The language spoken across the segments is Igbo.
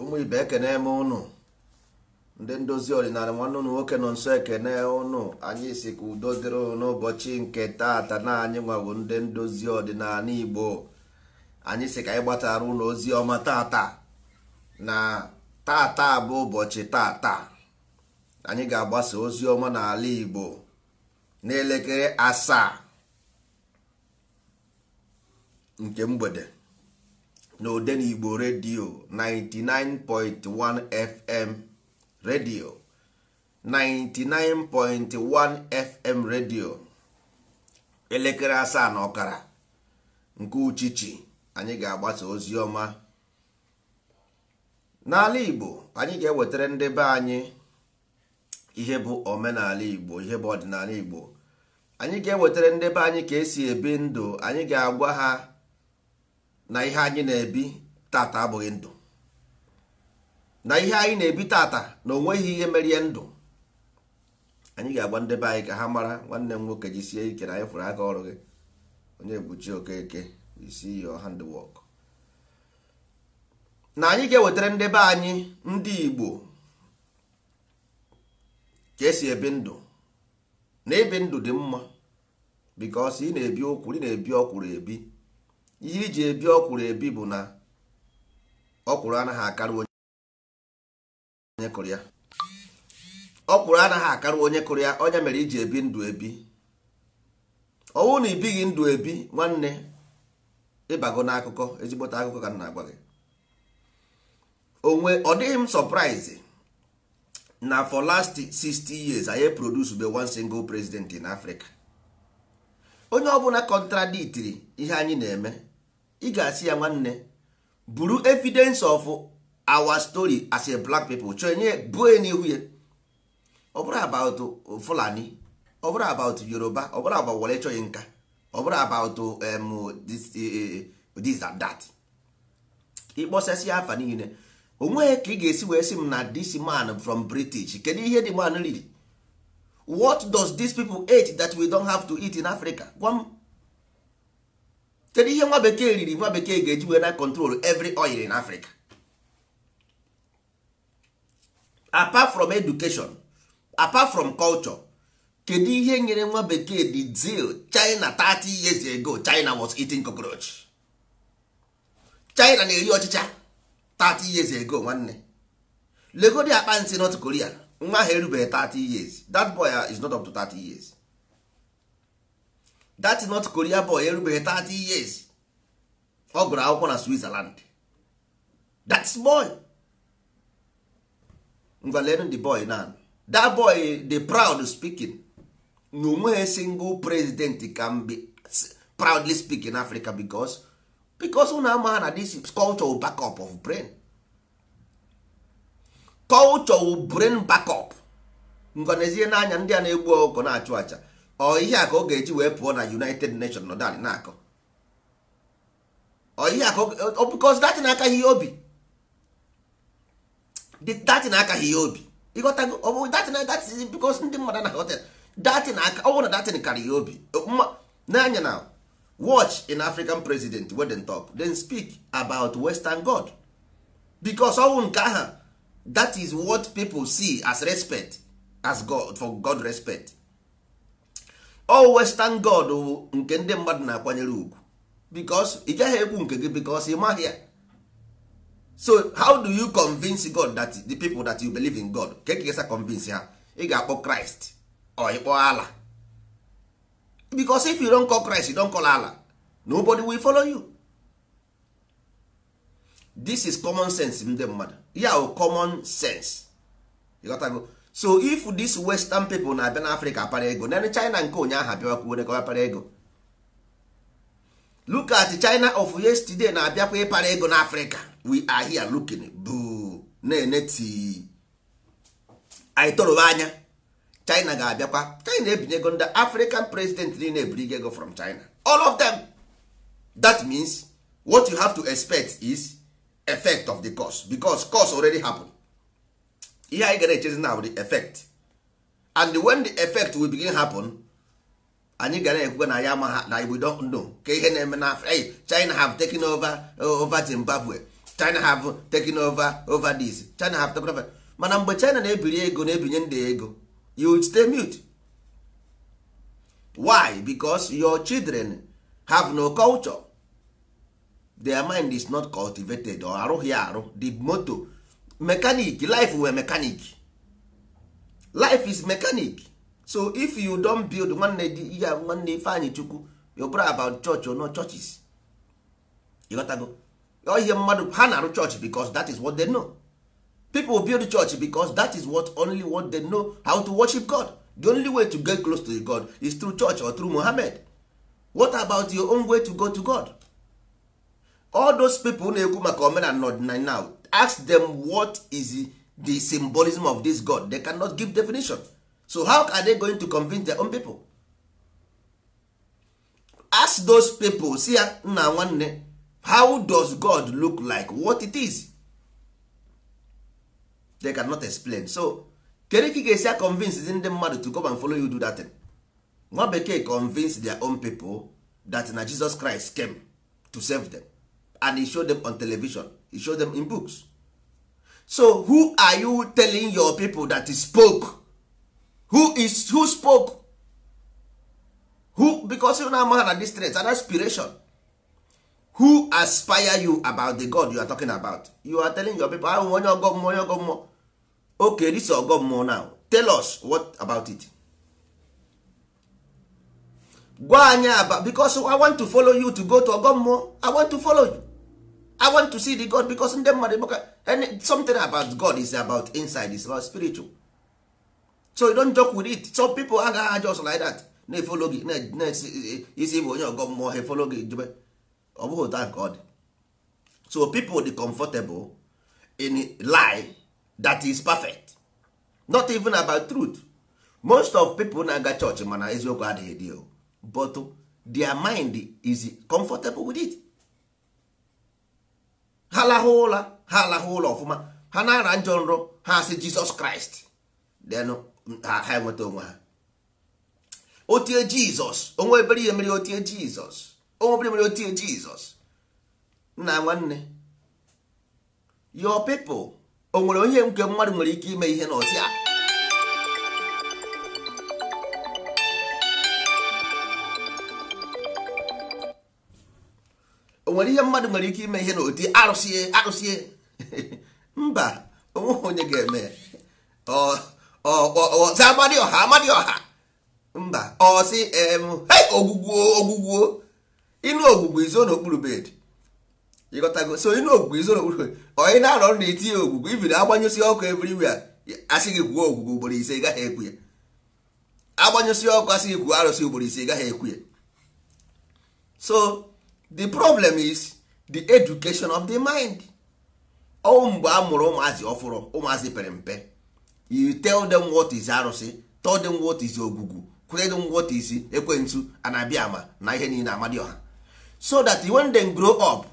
ụmụ ibe ekene m ụnụ ndị ndozi ọdịnala nwanne ụnụ nwoke nọ nso ekene ụnụ anyị si ka udo dịrị n'ụbọchị nke taata na anyị nwawo ndị ndozi ọdịnala igbo anyị si ka anyị gbatara ụlọ ozi ọma tata na tata bụ ụbọchị tata anyị ga-agbasa ozi ọma n'ala igbo n'elekere asaa nke mgbede na n'igbo redio 99.1 FM redio 99.1 FM redio elekere asaa na ọkara nke uchichi anyị ga-agbasa ozi ọma n'ala Igbo anyị ga-ewetara ndị be anyị ihe bụ omenala Igbo ihe bụ ọdịnala Igbo anyị ga-ewetara ndị be anyị ka esi ebi ndụ anyị ga-agwa ha na ihe anyị na-ebi taata abụghị ndụ na ihe anyị na-ebi tata na onweghị ihe merie ndụ anyị ga-agba ndebe anyị ka ha mara nwanne m nwoke sie ike na anyị fụrụ aka ọrụ gị onye buchi okeke isi your handwork na anyị ga-ewetara ndebe anyị ndị Igbo ka esi ebi ndụ na ibi ndụ dị mma because ị na-ebi okwuru ị na-ebi ọkwụrụ ebi ihe iji ebi ọkwụrụ ebi bụ na ọkwụrụ anaghị akarị onye kụrụ ya ọkwụrụ anaghị akarị onye kụrụ ya onye mere iji ebi ndụ ebi ọnwụ na ibighị ndụ ebi nwanne ịbago n'akụkọ ezigbote akụkọ ka m na-agwa gị ọ dịghị m na for last 60 years anyị produce be one single president in Africa onye ọbụla contradictiri ihe anyị na-eme ị ga-asị ya nwanne buru evidence of our story as a black people chọọ enye buo ya n'ihu ya ọ bụrụ about fulani ọ bụrụ about yoruba ọ bụrụ about wole chọghị nka ọ bụrụ about um, eh, eh, this and that ịkpọsasị afa niile onweghị ka ị ga-esi wee sị m na this man from british kedu ihe dị man riri what does dis people eat that we don't have to eat in africa kedu ihe nwa bekee riri nwa bekee ga-eji wee na control every oil in Africa apart from education apart from culture kedu ihe nyere nwa bekee the zeal China 30 years ago China was eating cockroach China na-eri ọchịcha 30 years ago nwanne legodi akpa nsi North Korea nwa ha erubeghị 30 years that boy uh, is not up to 30 years that not korea boy erubeghị 30 years ọ gụrụ akwụkwọ na switzerland that's boy ngwa lenụ the boy na that boy the proud speaking na onweghị single president can be proudly speak in africa because because unu ama na this culture backup of brain culture brain backup ngọnezie n'anya ndị a na-egbu ogo na-achụ acha ọ ihe a ka ọ ga-eji wee pụọ na united nations nọ dalị na-akọ ọ ihe ọ na-aka ihe obi datị na-aka ihe obi ịghọtago ọ bụ datị na datị bikọz ndị mmadụ na hotel datị na aka ọ bụrụ na datị karịa ihe obi n'anya na watch an african president wey dem talk then speak about western god because ọnwụ nke aha that is what people see as respect as god for god respect all western god bụ nke ndị mmadụ na-akwanyere ugwu because ị gaghị ekwu nke gị because ị maghị so how do you convince god that the people that you believe in god ka e ekegesa convince ha ị ga-akpọ christ or ịkpọ ala because if you don call christ you don call ala nobody will follow you this is common sense ndị mmadụ ya bụ common sense ịghọtago so if this western people na-abịa africa apara ego na china nke ụnyaahụ abịakwuo nekọwa para ego look at china of yesterday na-abịakwa ịpara ego africa we are here looking boo! na-ene tii anya china ga-abịakwa china ebinye ego african president niile ebirigo ego from china all of them that means what you have to expect is effect of the curse because curse already happened. ihe anyị gara echezi na the effect and when the effect will begin happen anyị gara ekwuga na ya ama na we don't know ka ihe na-eme na hey, China have taken over uh, over Zimbabwe China have taken over over this China have taken over mana mgbe China na-ebiri ego na-ebinye ndị ego you stay mute why because your children have no culture their mind is not cultivated or arụghị arụ the motor mechanic life were mechanic life is mechanic so if you don build nwanne ihe nwanne ifeanyị chukwu your brother about church or not churches go ihe mmadụ ha na-arụ church because that is what they know people build church because that is what only what they know how to worship god the only way to get close to god is through church or through mohammed what about your own way to go to god all those people na-ekwu maka omenala na ọdịnala now ask them what is the symbolism of this god they cannot give definition so how are they going to convince their own people ask those people see ah, nna nwanne how does god look like what it is they cannot explain so kedu ka ị ga-esi to come and follow you do that thing nwa bekee convince their own people that na jesus christ came to save them and e showed them on television he show them in books so who are you telling your people that spoke who is who spoke who because you na amaha na this strength an aspiration who aspire you about the god you are talking about you are telling your people ahụ onye ọgọ mmụọ onye ọgọ okay this ọgọ now tell us what about it gwa anyị aba because i want to follow you to go to ọgọ i want to follow you i want to see the god because ndị mmadụ maka something about god is about inside is about spiritual so you don't joke with it some people agaghị just like that na-efolo gị na-esi bụ onye ọgọ mmụọ ha efolo gị jube ọ bụghị otu nke so people dey comfortable in lie that is perfect not even about truth most of people na-aga church mana eziokwu adịghị dị but their mind is comfortable with it ha alahụ ụlọ ha alahụ ụlọ ọfụma ha na-ara njọ nrọ ha si jizọs kraịst denụ ha enweta onwe ha otie jizọs onwe ebere mere otie jizọs onwe otie jizọs nna nwanne yo people o nwere onye nke mmadụ nwere ike ime ihe a onwere ihe mmadụ nwere ike ime ihe na oti arụsie arụsie mba onweghị onye ga-eme ọza amadị ọha amadị ọha mba ọsị em ogwugwo ogwugwo ịnụ ogwugwo izo n'okpuru bed ịghọtago so ịnụ ogwugwo izo n'okpuru bed onye na-arọ ọrụ na-etinye ogwugwo ibiri agbanyụsị ọkụ everywhere asị gị gwuo ogwugwo ugboro ise gaghị ekwu ya agbanyụsị ọkụ asị gị gwuo arụsị ugboro ise gaghị ekwu ya so the problem is the education of the mind mgbe a mụrụ ụmụazị ọfụrụ ụmụazị pere mpe you tell them what is arụsị tell them what is ogugu kwere them what is ekwentụ ama na ihe niile amadi ọha so that when they grow up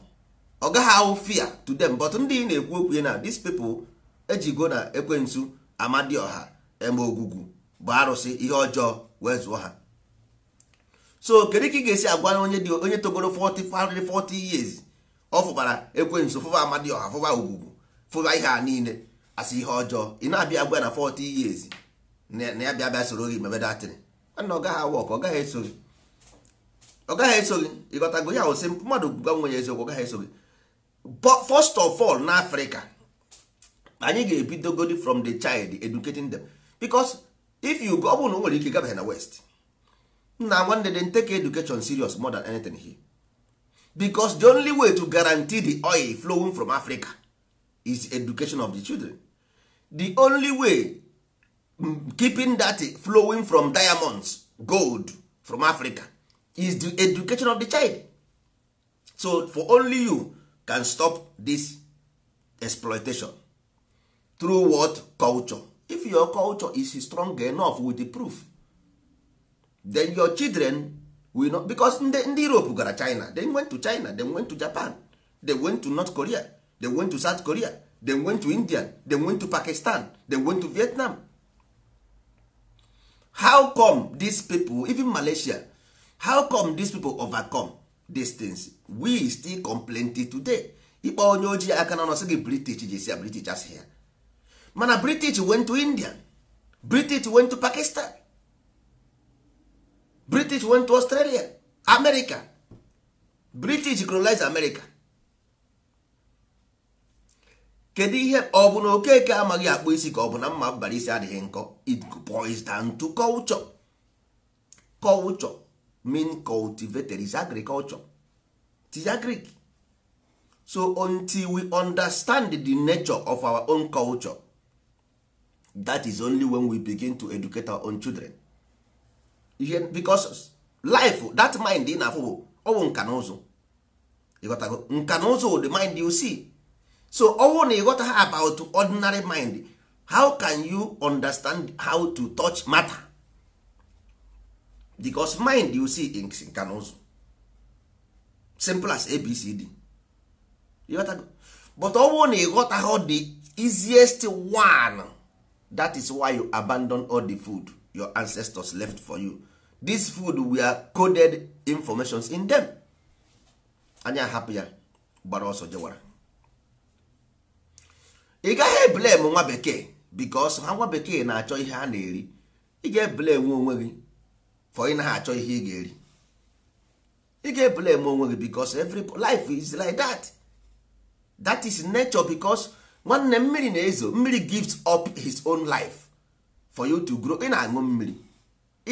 ọ gaghị ahụ fear to them but ndị na-ekwu okwu na these people ejigo na ekwentu amadi ọha eme ogugu bụ arụsị ihe ọjọọ wee zụọ ha so kedu ka ị ga-esi agwa onye dị onye togoro 40 40 years ọ fụbara ekwensu fụba amadioha fụba ugwugwu fụba ihe a niile asị ihe ọjọọ ị na-abịa agwa na 40 years na ya bịa bịa soro gị mebe datịrị mana ọ gaghị awọk ọ gaghị eso gị ọ gaghị eso gị ịghọtago ya osi mmadụ gwa nwe ya eziokwu ọ gaghị eso gị first of all na Africa anyị ga-ebidogodi from the child educating them because if you go ọ bụrụ na o nwere ike gabaghị na west nna nwanne dem take education serious more than anything here because the only way to guarantee the oil flowing from africa is education of the children the only way keeping that flowing from diamonds gold from africa is the education of the child so for only you can stop this exploitation through what culture if your culture is strong enough with the proof then your children will not because ndị europe gara china they went to china they went to japan they went to north korea they went to south korea they went to india they went to pakistan they went to vietnam how come these people even malaysia how come these people overcome these things we still complain till today ịkpọ onye ojii aka na ọsị gị british ji british as here mana british went to india british went to pakistan british went to australia america british colonize america kedu ihe ọ bụ na okeke amaghị akpụ isi ka ọ bụ na mma bara isi adịghị nkọ it boils down to culture culture mean cultivated is agriculture tis agric so until we understand the nature of our own culture that is only when we begin to educate our own children ihe because life that mind ị na-afụ bụ ọwụ nka na ụzụ ịghọtago nka na ụzụ the mind you see so ọwụ na ịghọta ha about ordinary mind how can you understand how to touch matter because mind you see is nka na ụzụ simple as abcd ịghọtago but ọwụ na ịghọta ha the easiest one that is why you abandon all the food your ancestors left for you this food we are coded informations in them anya hapụ ya gbara ọsọ jewara ị gaghị eblem nwa bekee because ha nwa bekee na-achọ ihe a na-eri ị ga-eblem onwe gị for ị naghị achọ ihe ị ga-eri ị ga-eblem onwe gị because every life is like that that is nature because nwanne mmiri na-ezo mmiri gives up his own life for you to grow ị na-aṅụ mmiri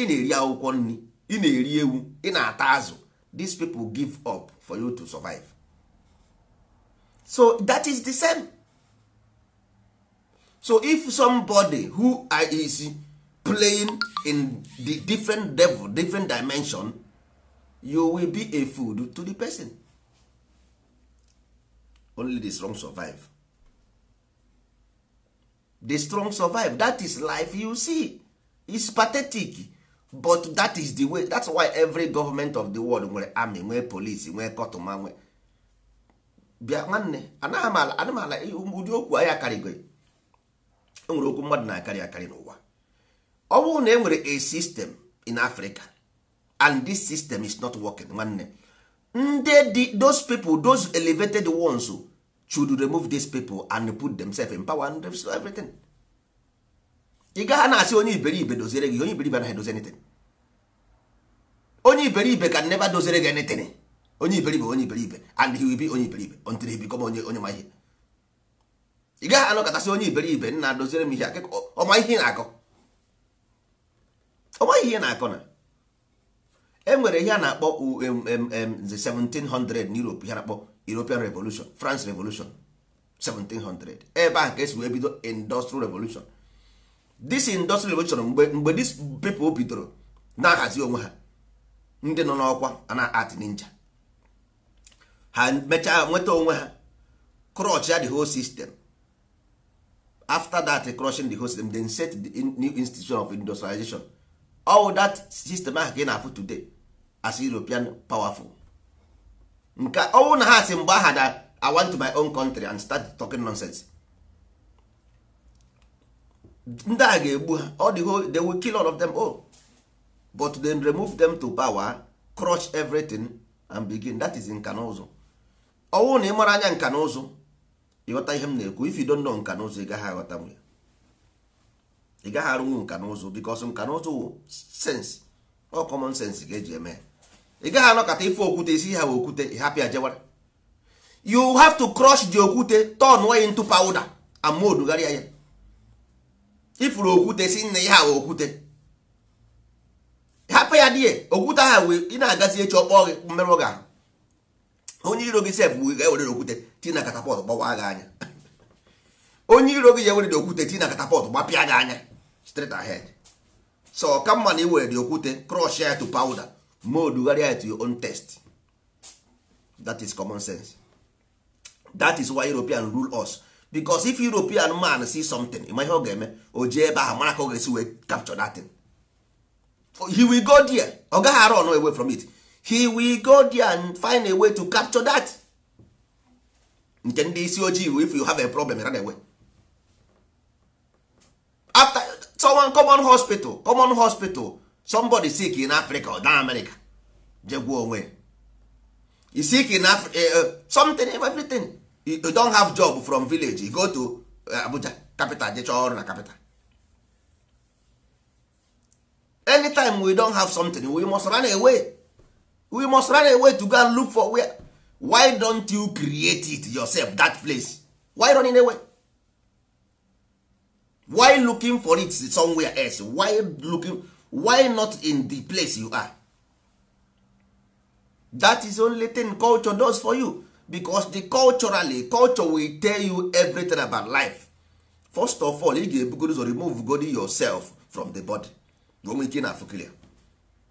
ị na-eri akwụkwọ nri ị na-eri ewu ị na-ata azụ these people give up for you to survive so that is the same so if somebody who is playing in the different level different dimension you will be a food to the person only the strong survive the strong survive that is life you see is pathetic but that is the way that's why every government of the world nwere army nwee police nwee kọtụma nwee bịa nwanne anamala m ụdị okwu ahịa karịgo enwere okwu mmadụ na-akarị akarị n'ụwa ọ bụrụ na e nwere a system in Africa and this system is not working nwanne ndị dị those people those elevated ones should remove these people and put themselves in power and everything. ị gaghị na-asị onye iberibe doziere gị onye iberibe anaghị dozi anything onye iberibe ka never doziere gị anything onye iberibe onye iberibe and he will be onye iberibe until he become onye onye ma ihe ị gaghị anọkọtasị onye iberibe nna doziere m ihe ọma ihe na-akọ ọma ihe na-akọ na e nwere ihe a na-akpọ the 1700 n'Europe ihe na-akpọ European Revolution France Revolution 1700 ebe ahụ ka esi wee bido Industrial Revolution this industrial revolution mgbe mgbe this people bidoro na-ahazi onwe ha ndị nọ n'ọkwa ana art ninja ha mechaa nweta onwe ha crotch the whole system after that e crushing the whole system then set the new institution of industrialization all that system ahụ ka ị na-afụ today as european powerful nke ọnwụ na ha si mgbe aha na i want to my own country and start talking nonsense ndị a ga-egbu ha ọ dịgo they will kill all of them oh but then remove them to power crush everything and begin that is nka na ụzụ ọnwụ na ị mara anya nka na ụzụ ịghọta ihe m na-ekwu if you don't know nka na ụzụ ị gaghị aghọta m ya ị gaghị arụnwu nka na ụzụ because nka na ụzụ wụ sense ọ common sense ga-eji eme ị gaghị anọkọta ife okwute isi ha okwute ị hapụ ya jewara you have to crush the okwute turn way into powder and mold gharịa ya ifuru okwute si nna ihe awa okwute hapụ ya die okwute ha wee ị na-agazi echi ọkpọ gị mmerụ gị ahụ onye iro gị sef wee ga-ewere okwute ti na katapọt gbawa gị anya onye iro gị nwere ewere okwute ti na katapọt gbapịa gị anya straight ahead so ọka mma na iwere dị okwute crush ya to powder ma odugharịa ya to your own test that is common sense that is why European rule us because if european man see something ịma ihe ọ ga-eme o jee ebe ahụ mara ka ọ ga-esi wee capture that thing oh, he will go there ọ gaghị arụ ọnụ away from it he will go there and find a way to capture that nke ndị isi ojii if you have a problem na-enwe. after someone common hospital common hospital somebody sick in africa or down america jegwuo onwe sick in africa eh, eh, something everything you don have job from village you go to uh, abuja capital je chọọ ọrụ na capital anytime we don have something we must run away we must run away to go and look for where why don't you create it yourself that place why running away why looking for it somewhere else why looking why not in the place you are that is only thing culture does for you because the culturally culture will tell you everything about life first of all ị ga-ebugoro ụzọ remove god yourself from the body nwee ike na clear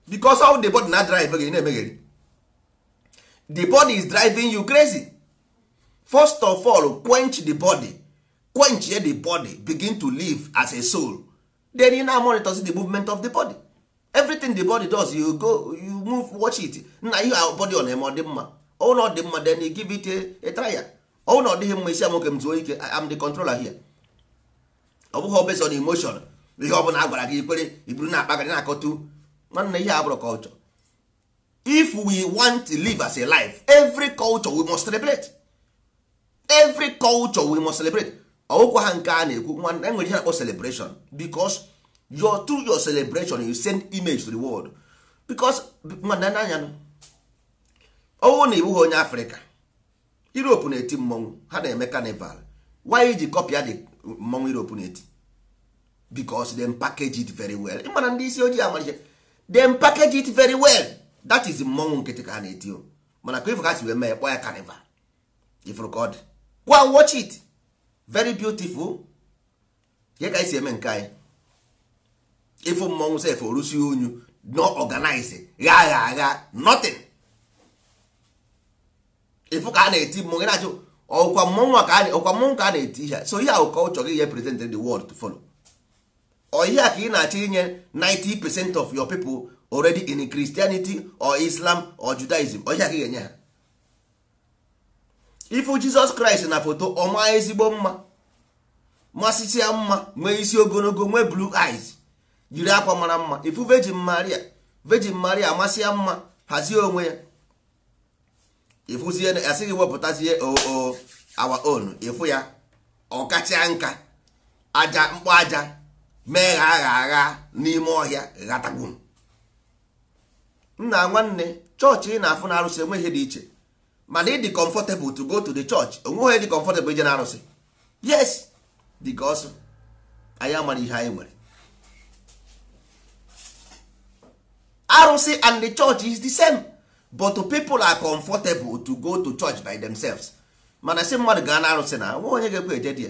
because all the body na drive gị na-emegheri the body is driving you crazy first of all quench the body quench the body begin to live as a soul then you now monitor the movement of the body everything the body does you go you move watch it you are body on na dị mma ụlọ dị mma then give it a na ọ dịghị mma isi nwoke m zuo ike am the controller here ọ bụghị based on emotion ihe ọ bụla a gị ikwere iburu na akpagarị na-akọtu nwanne ihe abụrụ culture if we want to live as a life every culture we must celebrate every culture we must celebrate ọwụkwa ha nke a na-ekwu nwanne enwere ihe na-akpọ celebration because your through your celebration you send image to the world because nwanne anya owu na iwu ha onye afrịka europe na-eti mmọnwụ ha na-eme carnival why ji kọpịa dị mmọnwụ europe na-eti because them package it very well mana ndị isi ojii amalite dem package it very well that is mmọnwụ nkịtị ka ha na-eti o mana ka ifụ ha si wee mee kpọọ ya carnival ifụrụ ka watch it very beautiful ihe ka isi si eme nke anyị ịfụ mmọnwụ sef orusi unyu no organize gha agha agha nothing ịfụ ka a na-eti mmọnwụ na ọkwa mmọnwụ ka ọkwa mmọnwụ ka a na-eti ihe so ihe ahụ culture gị represent the world to follow ọ ihe a ka ị na-achọ inye 90 percent of your people already in Christianity or Islam or Judaism ọ ihe ka ị ga-enye ha ịfụ Jizọs Kraịst na foto ọma ezigbo mma masịsị mma nwee isi ogologo nwee blue eyes yiri akwa mara mma ifu Virgin Maria Virgin Maria amasị ya mma hazie onwe ya ịfụzie asịghị wepụtazie oo awa own ịfụ ya ọ ọkacha nka aja mkpọ aja mee gha agha agha n'ime ọhịa ghatagbu nna nwanne chọọchị ị na-afụ na arụsị enweghị dị iche mana ịdị comfortable to go to the church onweghị dị comfortable ije na arụsị yes because anyị amara ihe anyị nwere arụsị and the church is the same. but people are comfortable to go to church by themselves mana si mmadụ gaa na arụsị na nwa onye ga-ekwe eje dị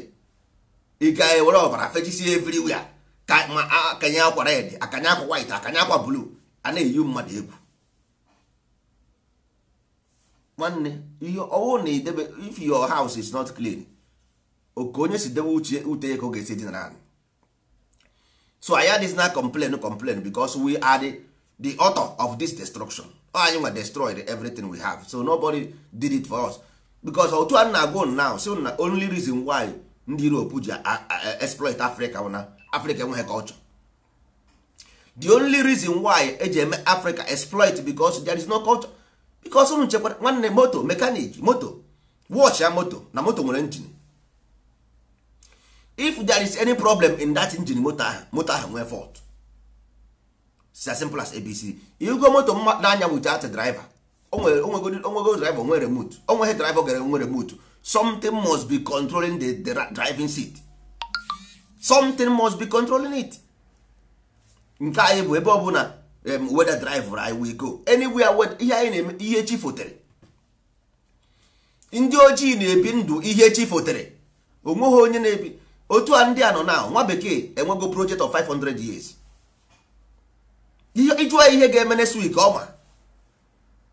ị ga-ewere ọbara fechisi everywhere ka ma akanye akwa red akanye akwa white akanye akwa blue a na-eyi mmadụ egwu nwanne ihe ọwụ na idebe if your house is not clean oke onye si debe uche ute ka ga-esi dinara anyị so anyị adịghị na complain complain because we are the author of this destruction anyị nwa destroyed everything we have so nobody did it for us because otu a na-agụ now so na only reason why ndị Europe ji exploit Africa na Africa enweghị culture the only reason why eji eme Africa exploit because there is no culture because unu chekwara nwanne moto mechanic moto watch ya moto na moto nwere engine if there is any problem in that engine moto ahụ moto ahụ nwee fault as simple as abc igo moto mmadụ n'anya wit at driver onwego driver onwe remote onweghị driver gara onwe remote something must be controlling the, driving seat something must be controlling it nke anyị bụ ebe na weda driver anyị will go anywhere ihe anyị na-eme ihe chi fotere ndị ojii na-ebi ndụ ihe chi fotere onweghị onye na-ebi otu a ndị a nọ na nwa bekee enwego project of 500 years ịjụọ ihe ga-eme next week ọma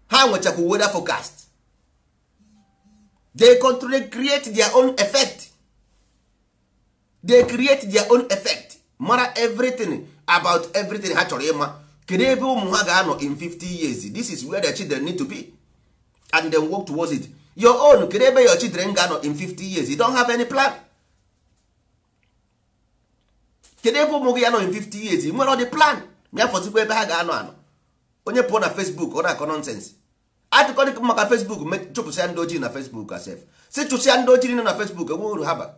ha nwechakwa weather forecast they control create their own effect they create their own effect mara everything about everything ha chọrọ ịma kedu ebe ụmụ ha ga-anọ in 50 years this is where the children need to be and then work towards it your own kedu ebe your children ga-anọ in 50 years you don't have any plan kedu ebe ụmụ gị anọ in 50 years nwere ọ dị plan bịa fọzikwa ebe ha ga-anọ anọ onye pụọ na fesbuk ọ na-akọ nọnsensị atụkọrịkọ maka fesbuk chụpụsịa ndị ojii na fesbuk asef si chụsịa ndị ojii nọ na fesbuk enwe uru ha bara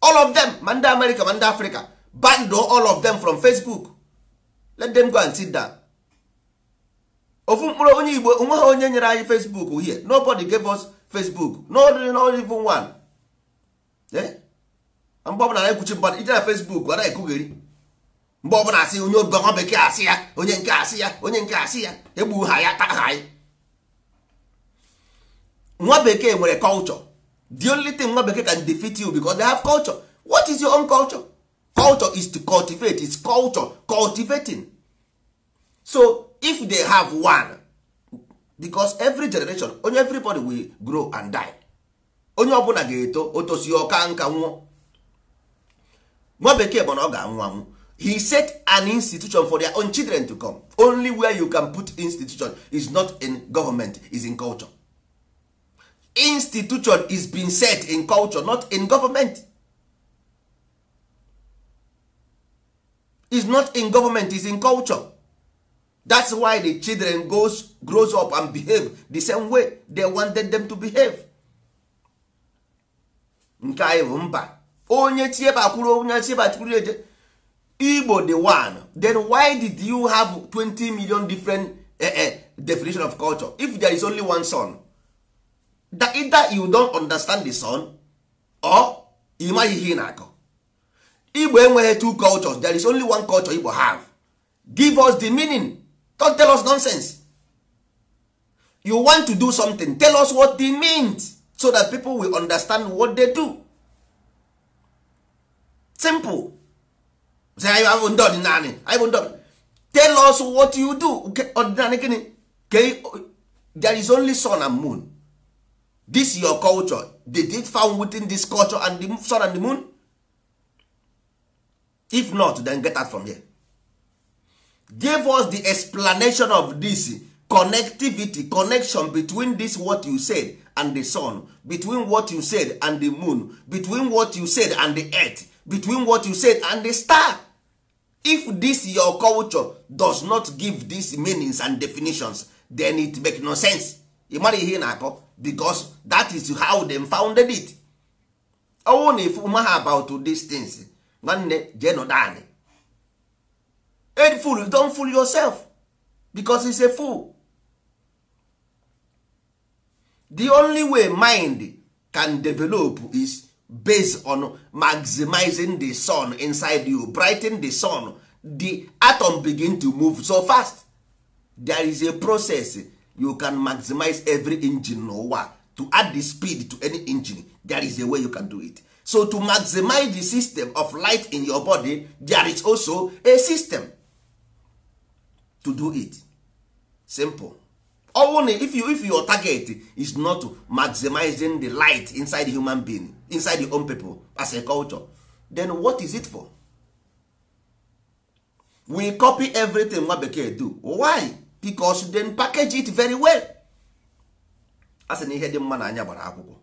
all of them ma ndị amerịka ma ndị afrịka bando all of them from facebook let them go and sit down ofu mkpụrụ onye igbo onwe ha onye nyere anyị facebook here nobody gave us facebook not even one eh? mgbe ọbụla na-ekwuchi mmadụ ije na facebook ọ na-ekugheri mgbe ọbụla asị onye ọgọ bekee asị ya onye nke asị ya onye nke asị ya egbu ha ya taa anyị nwa bekee nwere culture the only thing nwa bekee can defeat you because they have culture what is your own culture culture is to cultivate is culture cultivating so if they have one because every generation onye everybody will grow and die onye ọbụla ga-eto otosi ọka nka nwụọ nwa bekee bụ na ọ ga-anwụ anwụ he set an institution for their own children to come only where you can put institution is not in government is in culture institution is being set in culture not in government is not in government is in culture that's why the children goes grows up and behave the same way they wanted them to behave nke anyị bụ mba onye tieba kwuru onye tieba tikwuru eje igbo the one then why did you have 20 million different uh, uh, definition of culture if there is only one son that either you don't understand the son or ị maghị ihe na-akọ igbo enweghị two cultures there is only one culture igbo have give us the meaning don't tell us nonsense you want to do something tell us what it means so that people will understand what they do simple anyị bụ ndị ọdịnala anyị bụ ndị tell us what you do ọdịnala gịnị there is only sun and moon this your culture they did found within this culture and the sun and the moon if not then get out from here give us the explanation of this connectivity connection between this what you said and the sun between what you said and the moon between what you said and the earth between what you said and the star if this your culture does not give these meanings and definitions then it make no sense ị mara ihe ị na-akọ because that is how them founded it ọnwụ na ifu ma ha about these things nwanne jee nọdanị fool you don fool yourself because it's a fool the only way mind can develop is based on maximizing the sun inside you brighten the sun the atom begin to move so fast there is a process you can maximize every engine n'ụwa to add the speed to any engine there is a way you can do it so to maximize the system of light in your body there is also a system to do it simple ọnwụ if you if your target is not maximizing the light inside the human being inside the own people as a culture then what is it for we copy everything nwa bekee do why because then package it very well as na ihe dị mma na anya gbara akwụkwọ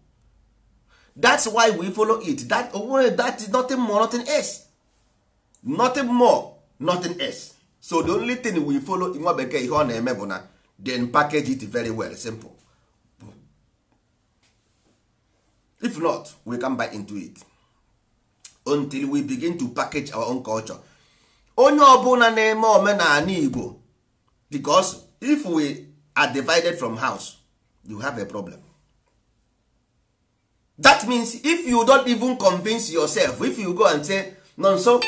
that's why we follow it that onwere that is nothing more nothing else nothing more nothing else so the only thing we follow nwa bekee ihe ọ na-eme bụ na then package it very well simple if not we can buy into it until we begin to package our own culture onye ọbụla na-eme omenala igbo because if we are divided from house you have a problem that means if you don't even convince yourself if you go and say nonso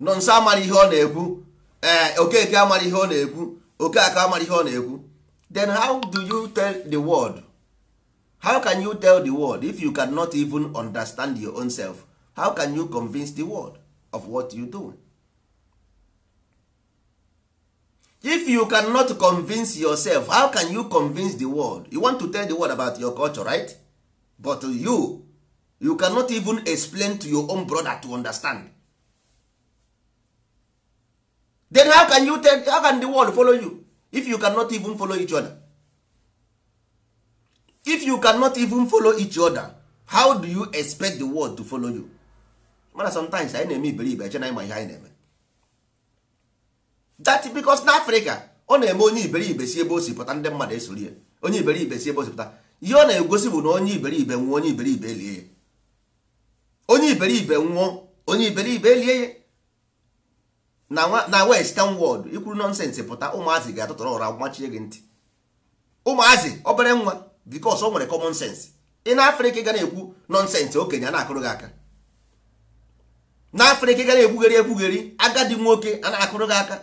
nọ nso amara ihe ọ na-ekwu ee eh, okeke amara ihe ọ na-ekwu okeke amara ihe ọ na-ekwu then how do you tell the world how can you tell the world if you cannot even understand your own self how can you convince the world of what you do if you cannot convince yourself how can you convince the world you want to tell the world about your culture right but you you cannot even explain to your own brother to understand then how can you tell, how can the world follow you if you cannot even follow each other if you cannot even follow each other how do you expect the world to follow you mana sometimes anyị na-eme iberibe eche na ịma ihe anyị na-eme that because na Africa ọ na-eme onye iberibe si ebe o si pụta ndị mmadụ esoro ya onye iberibe si ebe o si pụta ihe ọ na-egosi bụ na onye iberibe nwụọ onye iberibe elie onye iberibe nwụọ onye iberibe elie ya na oh, western world ikwuru nọnsensị pụta ụmụazị ga-atụtụrụ ụra gbachie gị ntị ụmụazị obere nwa bikos o nwere common sense ị na afrịka ga na-ekwu nọnsensị okenye a na-akụrụ gị aka na afrịka ga na-ekwugheri ekwugheri agadi nwoke a na-akụrụ gị aka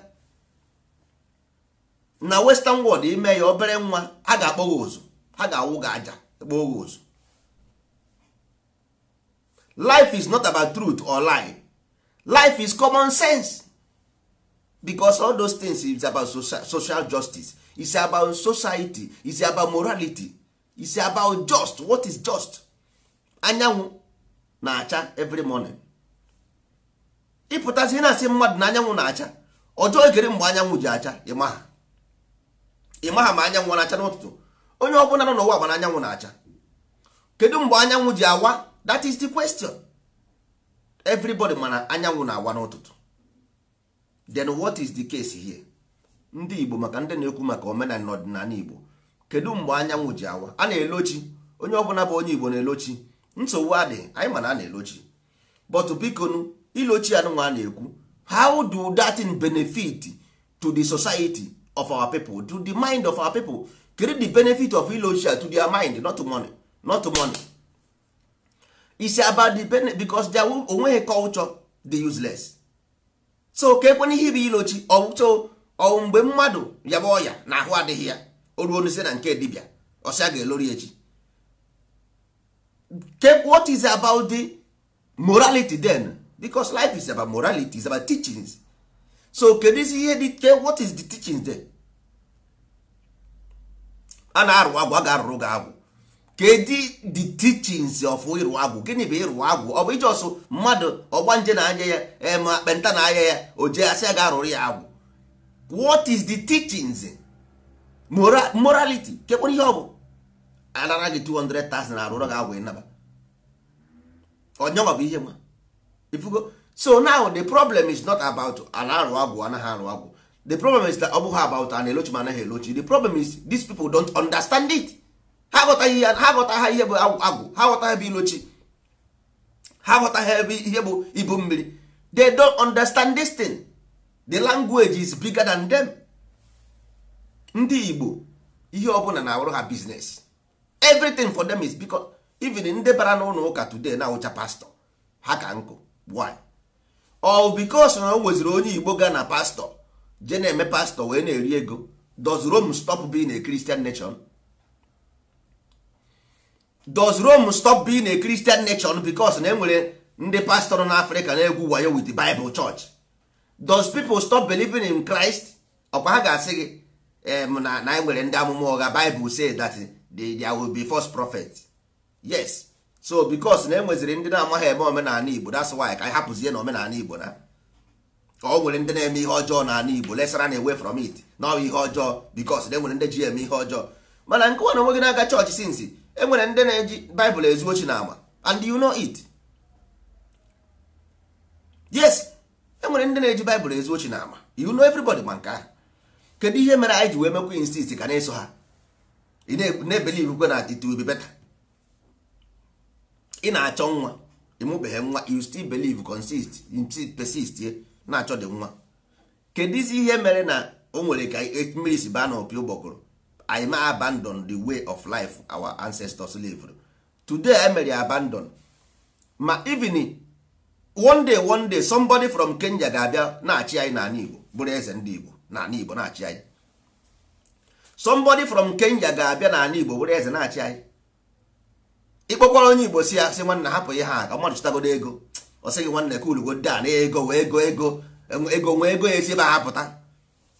na western world ime ya obere nwa a ga-akpọ gị ụzụ ha ga-awụ gị aja kpọọ gị ụzụ life is not about truth or lie life is common sense because all those things is about social justice is about society is about morality is about just what is just anyanwụ na-acha every morning ịpụtazi na-asị mmadụ na anyanwụ na-acha ọjọọ gere mgbe anyanwụ ji acha ịmaha ịmaha ma anyanwụ na-acha n'ụtụtụ onye ọ bụla nọ n'ụwa gbana anyanwụ na-acha kedu mgbe anyanwụ ji awa that is the question everybody mana anyanwụ na-awa n'ụtụtụ then what is the case here ndị igbo maka ndị na-ekwu maka omenala na ọdịnala igbo kedu mgbe anyanwụ ji awa a na-elochi onye ọbụla bụ onye igbo na-elochi nsogbu adị, anyị mana a na-elochi but bikonu ilochi anụnwa a na-ekwu how do that in benefit to the society of our people to the mind of our people kedu the benefit of ilochi to their mind not money not money it's about the benefit because there onweghị culture dị useless so ka ekwenye ihe bụ ilochi ọwụto ọwụ mgbe mmadụ yabụ ọya na ahụ adịghị ya o ruo n'ise na nke dibịa ọsịa ga-elori echi what is about the morality then because life is about morality is about teachings so kedu isi ihe dị what is the teachings then a na-arụ agwa a ga-arụrụ ga agwụ kedu the teachings of ịrụ agwụ gịnị bụ ịrụ agwụ ọ bụ ijọsụ mmadụ ọgbanje na anya ya ma kpenta na anya ya o jee asị ya ga arụrụ ya agwụ what is the teachings morality kekpere ihe ọ bụ anara gị 200,000 arụrụ gị agwụ ịnaba onyenwa bụ ihe nwa ifugo so now the problem is not about ana arụ agwụ anaghị arụ agwụ the problem is that ọ bụghị about ana elochi ma anaghị elochi the problem is these people don't understand it ha aghọtaghị ihe ha aghọtaghị ihe bụ agwụ ha aghọtaghị ebe ilochi ha aghọtaghị ebe ihe bụ ibu mmiri they don't understand this thing the language is bigger than them ndị Igbo ihe ọ bụla na-awụrụ ha biznes everything for them is because even ndị bara n'ụlọ ụka today na ụcha pastọ ha ka nkụ why all because na o nweziri onye Igbo gaa na pastọ je na-eme pastọ wee na-eri ego does stop being a Christian nation? does rome stop being a christian nation because na enwere ndị pastor na africa na-egwu wayo with the bible church does people stop believing in christ ọkwa ha ga-asị gị na na enwere ndị amụma ụgha bible say that there will be first prophet yes so because na enweziri ndị na-amaghị eme omenala igbo that's why ka anyị hapụzie na omenala igbo na ka ọ nwere ndị na-eme ihe ọjọọ n'ala igbo lesara na away from it na ọ ihe ọjọọ because na enwere ndị ji eme ihe ọjọọ mana nke na onwe na-aga chọọchị sinsi enwere ndị na-eji baịbụl ezu ochi na ama and you know it yes enwere ndị na-eji baịbụl ezu ochi na ama you know everybody ma nke ahụ kedu ihe mere anyị ji wee mekwa insist ka na-eso ha ị na-ebelive na it will be better ị na-achọ nwa ịmụbeghị nwa you still believe consist persist na-achọ dị nwa kedụzi ihe mere na o nwere ka mmiri si baa na opi ụgbọgụrụ anyị ma abandon the way of life our ancestors lived today emere abandon ma even one day one day somebody from Kenya ga-abịa na-achị anyị n'ala Igbo bụrụ eze ndị Igbo n'ala Igbo na-achị anyị somebody from Kenya ga-abịa n'ala Igbo bụrụ eze na-achị anyị ịkpọkwara onye Igbo si ya sị nwanna hapụ ihe ha ka mmadụ chụtagodo ego ọ sịghị nwanne ka ulugodo a na ego ego ego ego nwee ego ya esi ebe a hapụta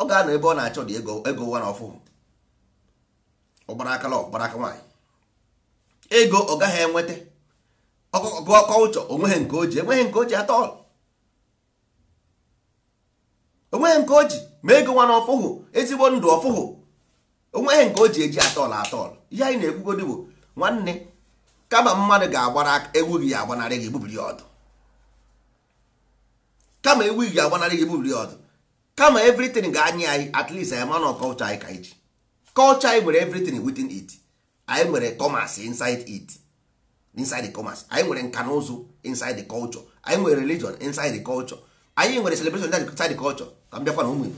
ọ ga-anọ ebe ọ na-achọ dị ego ego nwa na ọfụụ ọgbara aka lọ ọgbara aka nwaanyị ego ọ gaghị enweta ọgụgụ kọlchọ onweghị nke o ji enweghị nke o ji atọ onweghị nke o ji ma ego nwa na ọfụhụ ezigbo ndụ ọfụhụ onweghị nke o ji eji atọl atọl ihe anyị na-ekwugodị bụ nwanne kama mmadụ ga-agbara ewu gị agbanarị gị ebubiri ọdụ kama ewu gị agbanarị gị ebubiri ọdụ kama evritin ga-anyị anyị at least anyị ọkọ ụchọ anyị ka anyị culture anyị nwere everything within it anyị nwere commerce inside it inside the commerce anyị nwere nka inside the culture anyị nwere religion inside the culture anyị nwere celebration inside the culture ka m bịakwa na ụmụ Igbo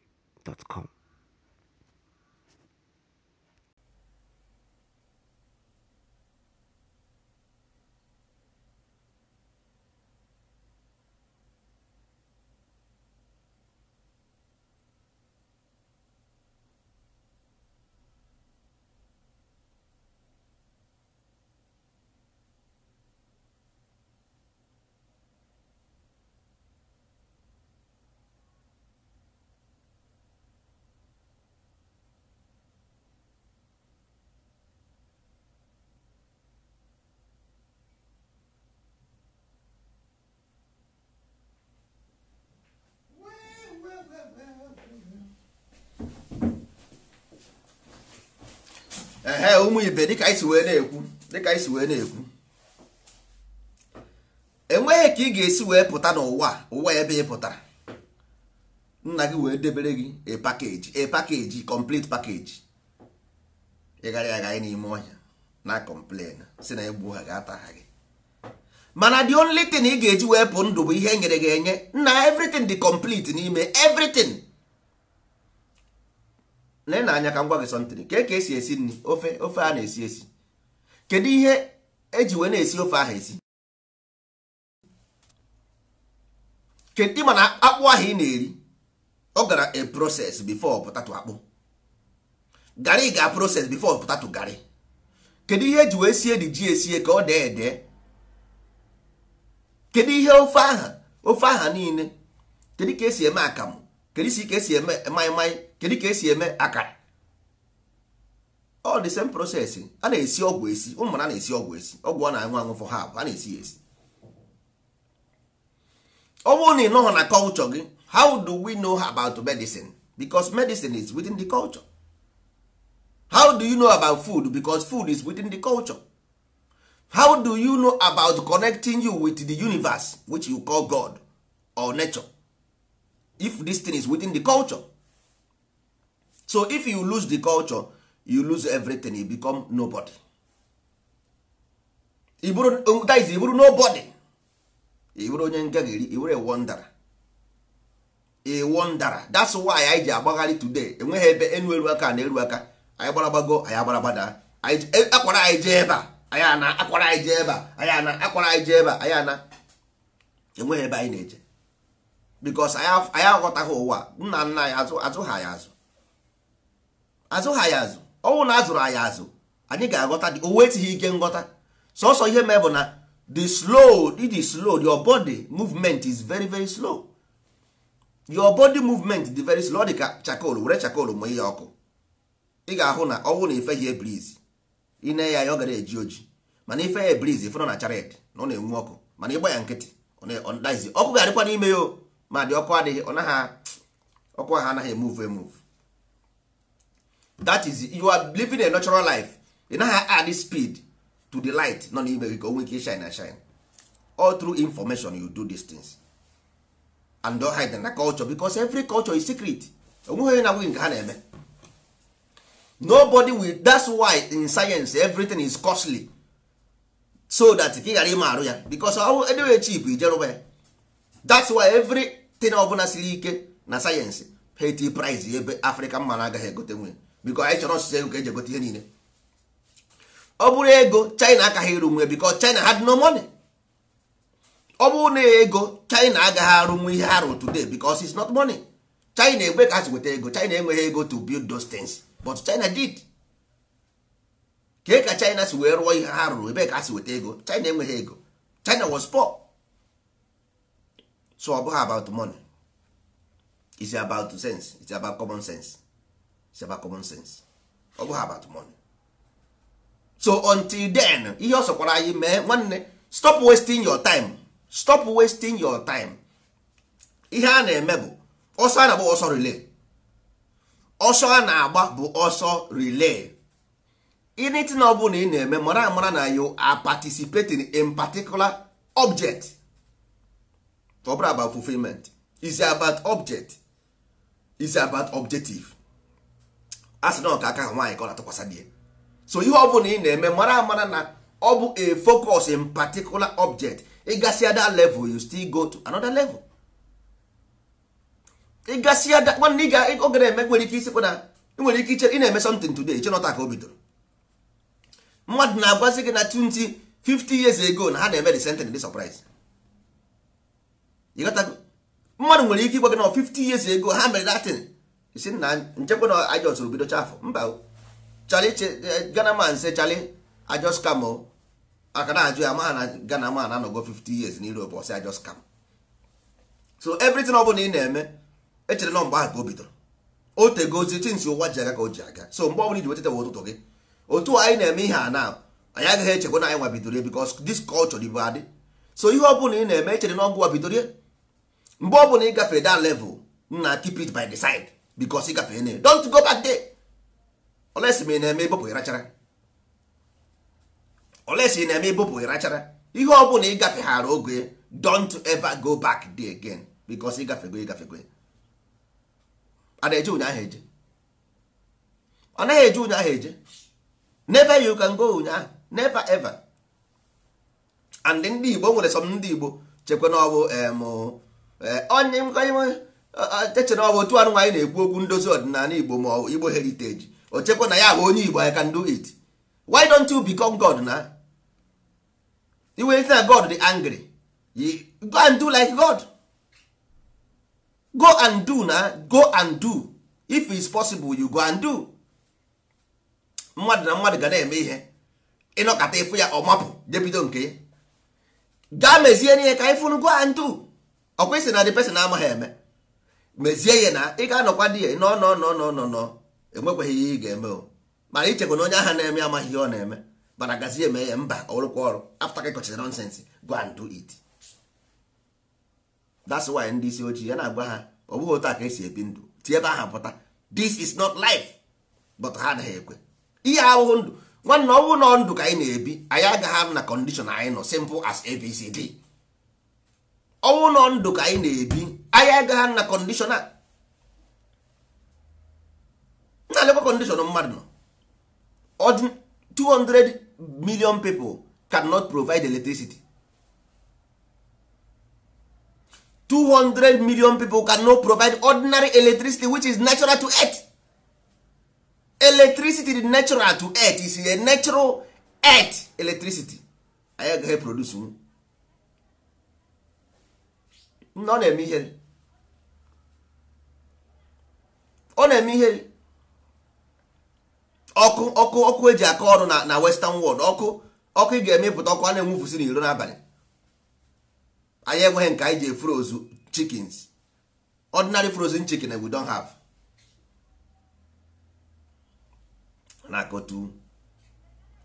com. ụmụ ibe dịka anyị si wee na-ekwu dịka anyị si wee na-ekwu enweghị ka ị ga-esi wee pụta n'ụwa ụwa ebe ị pụtara nna gị wee debere gị a pakeji a pakeji complete pakeji ịgara aga n'ime ọhịa na complain si na egbu ha ga-ata gị mana the only thing ị ga-eji wee pụ ndụ bụ ihe nyere gị enye na everything dị complete n'ime everything lee na anya ka ngwa gị sọntịrị ka ka e esi esi nri ofe ofe a na-esi esi kedu ihe eji wee na-esi ofe ahụ esi kedu ịma na akpụ ahụ ị na-eri ọ gara a proses bifo potato akpụ garị ga proses bifo potato garị kedu ihe eji wee sie dị ji esie ka ọ dee ede kedu ihe ofe aha ofe aha niile kedu ka esi eme akamụ kedu isi ka esi eme maịmaị kedu ka esi eme akara all the same process a na-esi ọgwụ esi ụmụmara na-esi ọgwụ esi ọgwụ ọ na-anwụ anwụ for ha a na-esi esi ọ bụrụ na ị nọghọ na culture gị how do we know about medicine because medicine is within the culture how do you know about food because food is within the culture how do you know about connecting you with the universe which you call God or nature if this thing is within the culture so if you lose the culture you lose everything you become nobody iburu that is iburu nobody iburu onye ngagiri iburu a wonder a wonder that's why anyị ji agbagharị today enweghị ebe enu eru aka na eru aka anyị gbaragbago anyị agbaragbada e, akwara anyị jee ebe anyị ana akwara anyị jee ebe anyị ana akwara anyị jee ebe anyị ana enweghị ebe anyị na-eje because anyị aghọtaghị ụwa nna nna anyị azụ azụ ha anyị azụ azụ ha ya azụ ọnwụ na azụrụ anyị azụ anyị ga-aghọta o wetighị ike nghọta sọsọ ihe mee bụ na the slow the slow your body movement is very very slow your body movement dị very slow ọ dị ka chakol were chakol ma ihe ọkụ ị ga-ahụ na ọnwụ na ife ya ebriz na ya ya ọ gara eji oji mana ife ya ife nọ na chared na ọ na-enwu ọkụ mana ịgba ya nkịtị ọkụ ga-adịkwa n'ime ya ma dị ọkụ adịghị ọ naghị ọkụ ahụ anaghị emuvu emuvu that is you are living a natural life ị naghị add speed to the light nọ n'ime gị ka go nwee ike shine and shine all through information you do these things and don't hide na culture because every culture is secret onweghị na nwunye nke ha na-eme nobody will that's why in science everything is costly so that ka ị ghara ịma arụ ya because ọwụ edewe chip ijerụba ya that's why everything bụla siri ike na sayensị heti price ebe afrịka mma na agaghị egote nwunye biko anyị chọrọ ọsụsụ ego ka eji egote ihe niile ọ bụrụ ego china akaghị ịrụ nwe biko china had no money ọ bụrụ na ego china agaghị arụ nwe ihe ha today because it's not money china egbe ka ha si weta ego china enweghị ego to build those things but china did ka ka china si wee rụọ ihe ha rụrụ ebe ka ha si weta ego china enweghị ego china was poor so ọ bụghị about money it's about sense it's about common sense seba common sense ọ bụghị about money so until then ihe ọ sọkwara anyị mee nwanne stop wasting your time stop wasting your time ihe a na-eme bụ ọsọ a na-agba ọsọ relay ọsọ a na-agba bụ ọsọ relay anything ọ bụla ị na-eme mara amara na you a participating in particular object ọ bụrụ about fulfillment is about object is about objective a na ọka aka ha nwaanyị ka ọ na-atụkwasị di so ihe ọ bụla ị na-eme mara amara na ọ bụ a focus in particular object ịgasịa that level you still go to another level ịgasịa that nwanne ị ga na-eme nwere ike isikwa na nwere ike iche ị na-eme something today iche nọta ka o bidoro mmadụ na-agwazi gị na 20 50 years ago na ha na-eme the sentence the surprise mmadụ nwere ike ịgwa gị na 50 years ago ha mere datin isi na nchekwa na anyị jọsụrụ bido chafụ mba chali eh, gana man se chali ajọs kamo aka na ajụ ya ma na gana man anọgo 50 years na europe ọsị ajọs kam so everything ọ bụla ị na-eme echere nọ mgbe ahụ ka o bidoro o tegozi tinsi ụwa ji aga ka o ji aga so mgbe ọbụla iji wetetawa ụtụtụ gị otu anyị na-eme ihe a na anyị agaghị echekwa na anyị nwa bidoro ya because this culture dịbụ adị so ihe ọ ọbụla ị na-eme echere na ọgụ wa bidoro ya mgbe ọbụla ị gafee that level na keep it by the side bikos ị gafere na don't go back there olesi ma ị na-eme ịbụpụ ịrachara olesi ị na-eme ịbụpụ ịrachara ihe ọ bụla ịgafeghara oge don't ever go back there again bikos ịgafego ịgafego a na-eje ụnyaahụ eje ọ naghị eje ụnyaahụ eje never you can go ụnyaahụ never ever and ndị Igbo nwere some ndị Igbo chekwa na ọ bụ eh, onye nkwenye echere ọ bụ otu anụ na-ekwu okwu ndozi ọdịnala igbo ma ọ igbo heriteji o chekwa na ya bụ onye igbo I can do it why don't you become God na iwe na God dị angry go and do like God go and do na go and do if it's possible you go and do mmadụ na mmadụ ga na-eme ihe ịnọkọta ịfụ ya ọmapụ jebido nke ya gaa mezie n'ihe ka ịfụrụ go and do ọkwa isi na the person amaghị eme mezie ya na ị ga-anọkwa di ya nọ nọ nọ nọ nọ nọ enwekwaghị ihe ị ga-eme o mana ichekwa na onye ahụ na-eme amaghị ihe ọ na-eme mana gazie eme ya mba ọrụkwa ọrụ afta ka kọchara nonsens go and do it that's why ndị isi ojii ya na-agwa ha ọ bụghị otu a ka esi ebi ndụ tie ebe aha pụta this is not life but ha adịghị ekwe ihe ahụhụ ndụ nwanne ọnwụ nọ ndụ ka anyị na-ebi anyị agaghị ahụ na kọndishọn anyị nọ simple as abcd ọnwụ nọ ndụ ka anyị na-ebi anyị agaghị na kọndishọn na-alekwa kọndishọn mmadụ nọ 200 million people cannot provide electricity 200 million people cannot provide ordinary electricity which is natural to earth electricity is natural to earth is a natural earth electricity anyị agaghị produce Nna ọ na-eme ihere ọ na-eme ihere ọkụ ọkụ ọkụ eji aka ọrụ na na western world ọkụ ọkụ ị ga-emepụta ọkụ a na-enwufusi n'iro n'abalị anyị enweghị nke anyị ji frozen chickens ordinary frozen chicken we don have na kotu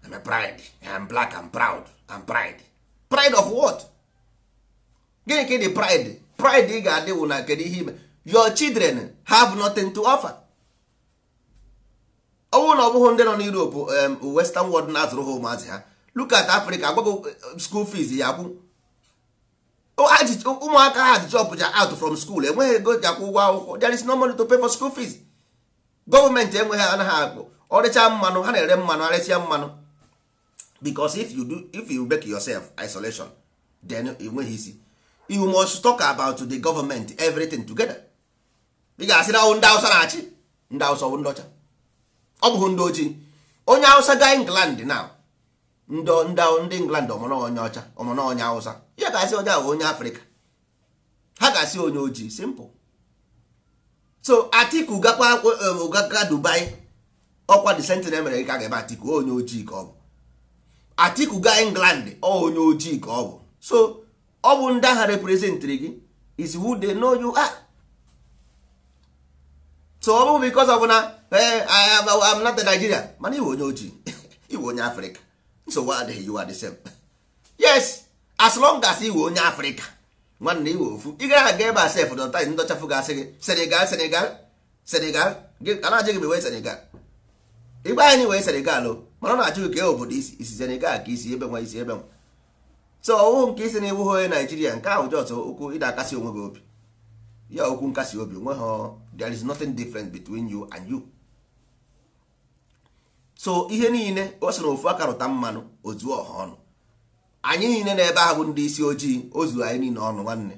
I'm a pride I'm black I'm proud I'm pride pride of what? gịnị ka ịdị pride pride ị ga-adị wụ na kedu ihe ime your children have nothing to offer ọnwụ na ọ bụghị ndị nọ n'Europe western world na-azụrụ ha ụmụazị ha look at Africa agbago eh, school fees ya kwụ ụmụaka ha ji chọpụcha out from school enweghị ego ji akwụ ụgwọ akwụkwọ there is no money to pay for school fees gọọmenti enweghị anaghị akpụ ọrịcha mmanụ ha na-ere mmanụ arịcha mmanụ because if you do if you make yourself isolation then enweghị isi you must talk about the government everything together ị ga-asị na ndị Hausa na-achị ndị Hausa ndị ọcha ọ bụghị ndị ojii onye Hausa ga England na ndị England ọmụnonye ọcha ọmụnonye Hausa ya ga-asị onye ahụ onye Afrịka ha ga-asị onye ojii simple so Atiku gakwa um, Dubai ọkwa the sentinel mere ka ga-eme Atiku onye England ọ onye ojii ka ọ bụ ọ bụ ndị agha reprezentịrị gị is who they know you are. so ọ bụrụ ọ of na eh, I am not Nigeria mana iwe onye ojii iwe onye Afrịka nsogbu adịghị you are the same. yes as long as iwe onye Afrịka nwanne iwe ofu ị gaghị aga ebe a sef dọta ndọchafụ ga-asị gị Senegal Senegal Senegal ana-ajụ gị wee Senegal ịgba anyị wee Senegal mana ọ na-ajụ ka ka e obodo isi Senegal ka isi ebe nwa isi ebe nwa so ọwụ nke isi na iwu onye naijiria nke ahụ jọs okwu ịda akasi onwe gị obi ya okwu nkasi obi onwe ha there is nothing different between you and you so ihe niile o soro ofu aka rụta mmanụ ozu ọha ọnụ anyị niile na ebe ahụ ndị isi ojii ozu anyị niile ọnụ nwanne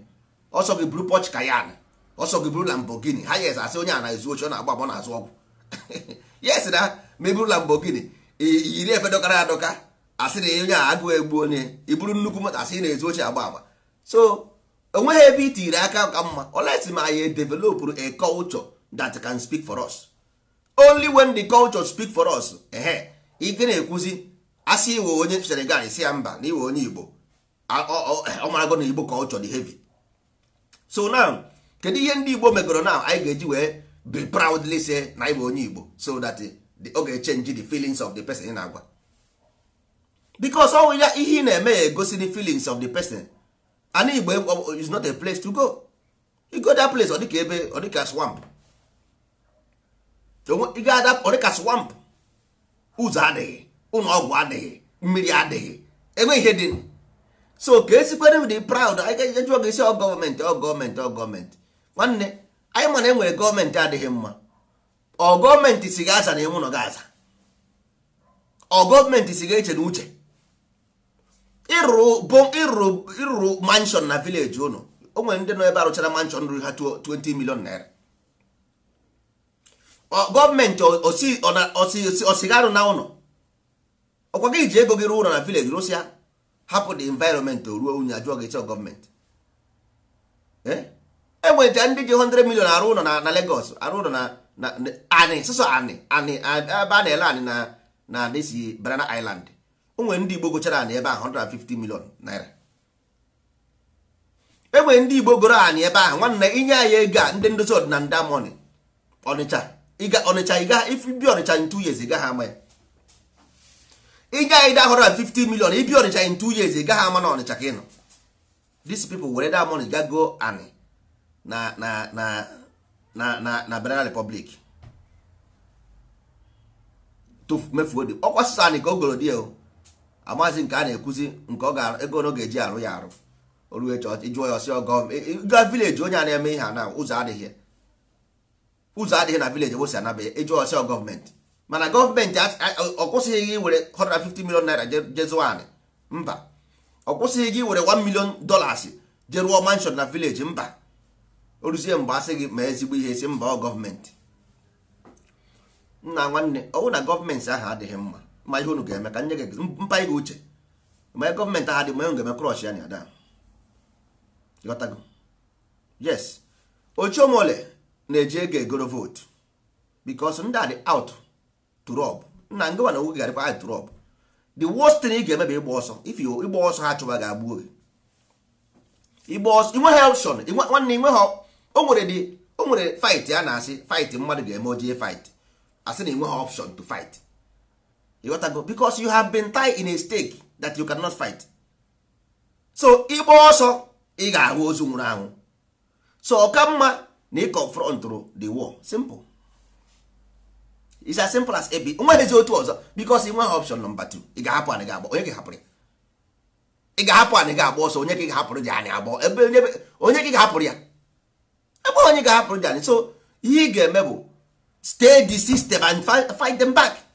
ọsọ gị buru Porsche Cayenne ọsọ gị buru Lamborghini ha yes asị onye a na-ezu oche ọ na-agba agbọ na-azụ ọgwụ yes na ma eburu Lamborghini iyiri efe dọkara adọka asị na onye a agụụ egbu onye iburu nnukwu moto asị na-ezu oche agba agba so enweghị ebe i tinyere aka ka mma olesi ma anyị developụrụ a culture that can speak for us only when the culture speak for us ehe ike na-ekwuzi asị iwe onye Senegal si ya mba na iwe onye Igbo ọmarago na Igbo culture dị heavy so now kedu ihe ndị Igbo megoro now anyị ga-eji wee be proudly say na iwe onye Igbo so that ọ ga-echenji the feelings of the person ị na-agwa because ọnwụ ya ihe ị na-eme ya egosi the feelings of the person and igbo e, is not a place to go you go that place ọ dịka ebe ọ dịka swamp ị ga-ada ọ dịka swamp ụzọ adịghị ụlọ ọgwụ adịghị mmiri adịghị enweghị ihe dị so ka esikwere dị proud anyị jụọ gị ọ gọọmenti ọ gọọmenti ọ gọọmenti nwanne anyị mana enwere gọọmenti adịghị mma ọ gọọmenti si gị aza na ịnwụ nọ gị aza ọ gọọmenti si gị eche na uche ịrụrụ manshọn na vileji ụnụ o nwere ndị nọ ebe arụchara manshọn ruo ha 20 milion naira gọọmenti osigarụ na ụlọ ọkwa gị ji ego gị ruo ụlọ na vileji rụsi ya hapụ the environment ruo unyi ajụọ gị chọọ gọọmenti enweta e ndị ji 100 milion arụ ụlọ na Lagos arụ ụlọ na ani sụsọ ani ani ebe a na-ele ani na disi Banana Island o ndị igbo gochara anị ebe ahụ 150 million naira enwere ndị igbo goro anyị ebe ahụ nwanne inye anyị ego a ndị ndozi ọdịna nda mọni ọnịcha ịga ọnịcha ịga ibi ọnịcha in two years ịgaghị ama ya inye anyị da 150 million ibi ọnịcha in two years ịgaghị ama na ọnịcha ka ị nọ these people were that money gago anị na na na na na na Benin Republic to mefuo dị ọkwa sasa anị ka o goro di ya o amaghịzi nke a na-ekwuzi nke ọ ga ego ọ ga-eji arụ ya arụ oruo jụọ ya ọsị ọgọ ga vileji onye a na-eme ihe a na ụzọ adịghị ụzọ adịghị na vileji ebosi anaba ya ịjụọ ọsị gọọmenti mana gọọmenti ọ kwụsịghị gị were 150 million naira jezuanị mba ọ kwụsịghị gị were 1 million dollars je rụọ mansion na vileji mba oruzie mgbe asị gị ma ezigbo ihe si mba ọ gọọmenti nna nwanne ọwụ na gọọmenti ahụ adịghị mma ma ihe unu ga-eme ka nye gị mpa ihe uche ma gọọmentị ahụ dị mma ga-eme krọsh ya na ada ghọtago yes ochiomole na-eji ego egoro vootu bikos ndị a dị out to nna ngịwa na nwoke garịkwa the worst thing ị ga-eme bụ ịgba ọsọ if ịgba ọsọ ha gị ọsọ ha nwanne o nwere dị o nwere fight ya asị fight mmadụ ga-eme ojee fight na ha to fight ịghọtago because you have been tied in a stake that you cannot fight so ịgba ọsọ ị ga-ahụ ozu nwụrụ anwụ so ọka mma na ị confront the war simple it's as simple as ebi nweghịzi otu ọzọ because ị nweghị option number two ị ga-ahapụ anyị ga-agba onye ga-ahapụrụ ya ị ga-ahapụ anyị ga-agba ọsọ onye ka ị ga-ahapụrụ ji anyị agba ebe onye ka ị ga-ahapụrụ ya ebe onye ga-ahapụrụ ji anyị so ihe ị ga-eme bụ stay the system and fight them back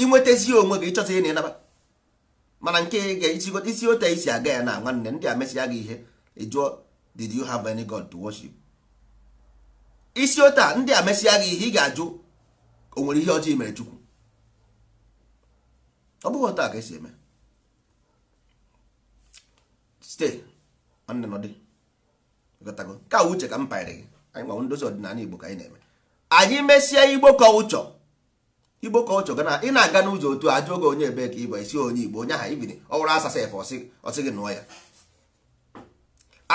inwetazi onwe gị ịchọta ihe na ịnaba mana nke isi otu isi aga ya na nwanne ndị a mesịa gị ihe ịjụọ did you have any god to worship isi otu a ndị a mesịa gị ihe ị ga-ajụ o nwere ihe ọjọọ mere chukwu ọ bụghị otu a ka esi eme stay nwanne nọdị ka uche ka m panyere gị anyị nwa ndozi ọdịnala igbo ka anyị na-eme anyị mesịa igbo kọlchọ igbo ka ọ chọga na ị na-aga n'ụzọ otu a jụọ oge onye ebe ka ịbụ esi onye igbo onye aha ibiri ọwụrụ asasa efe ọsị gị nụọ ya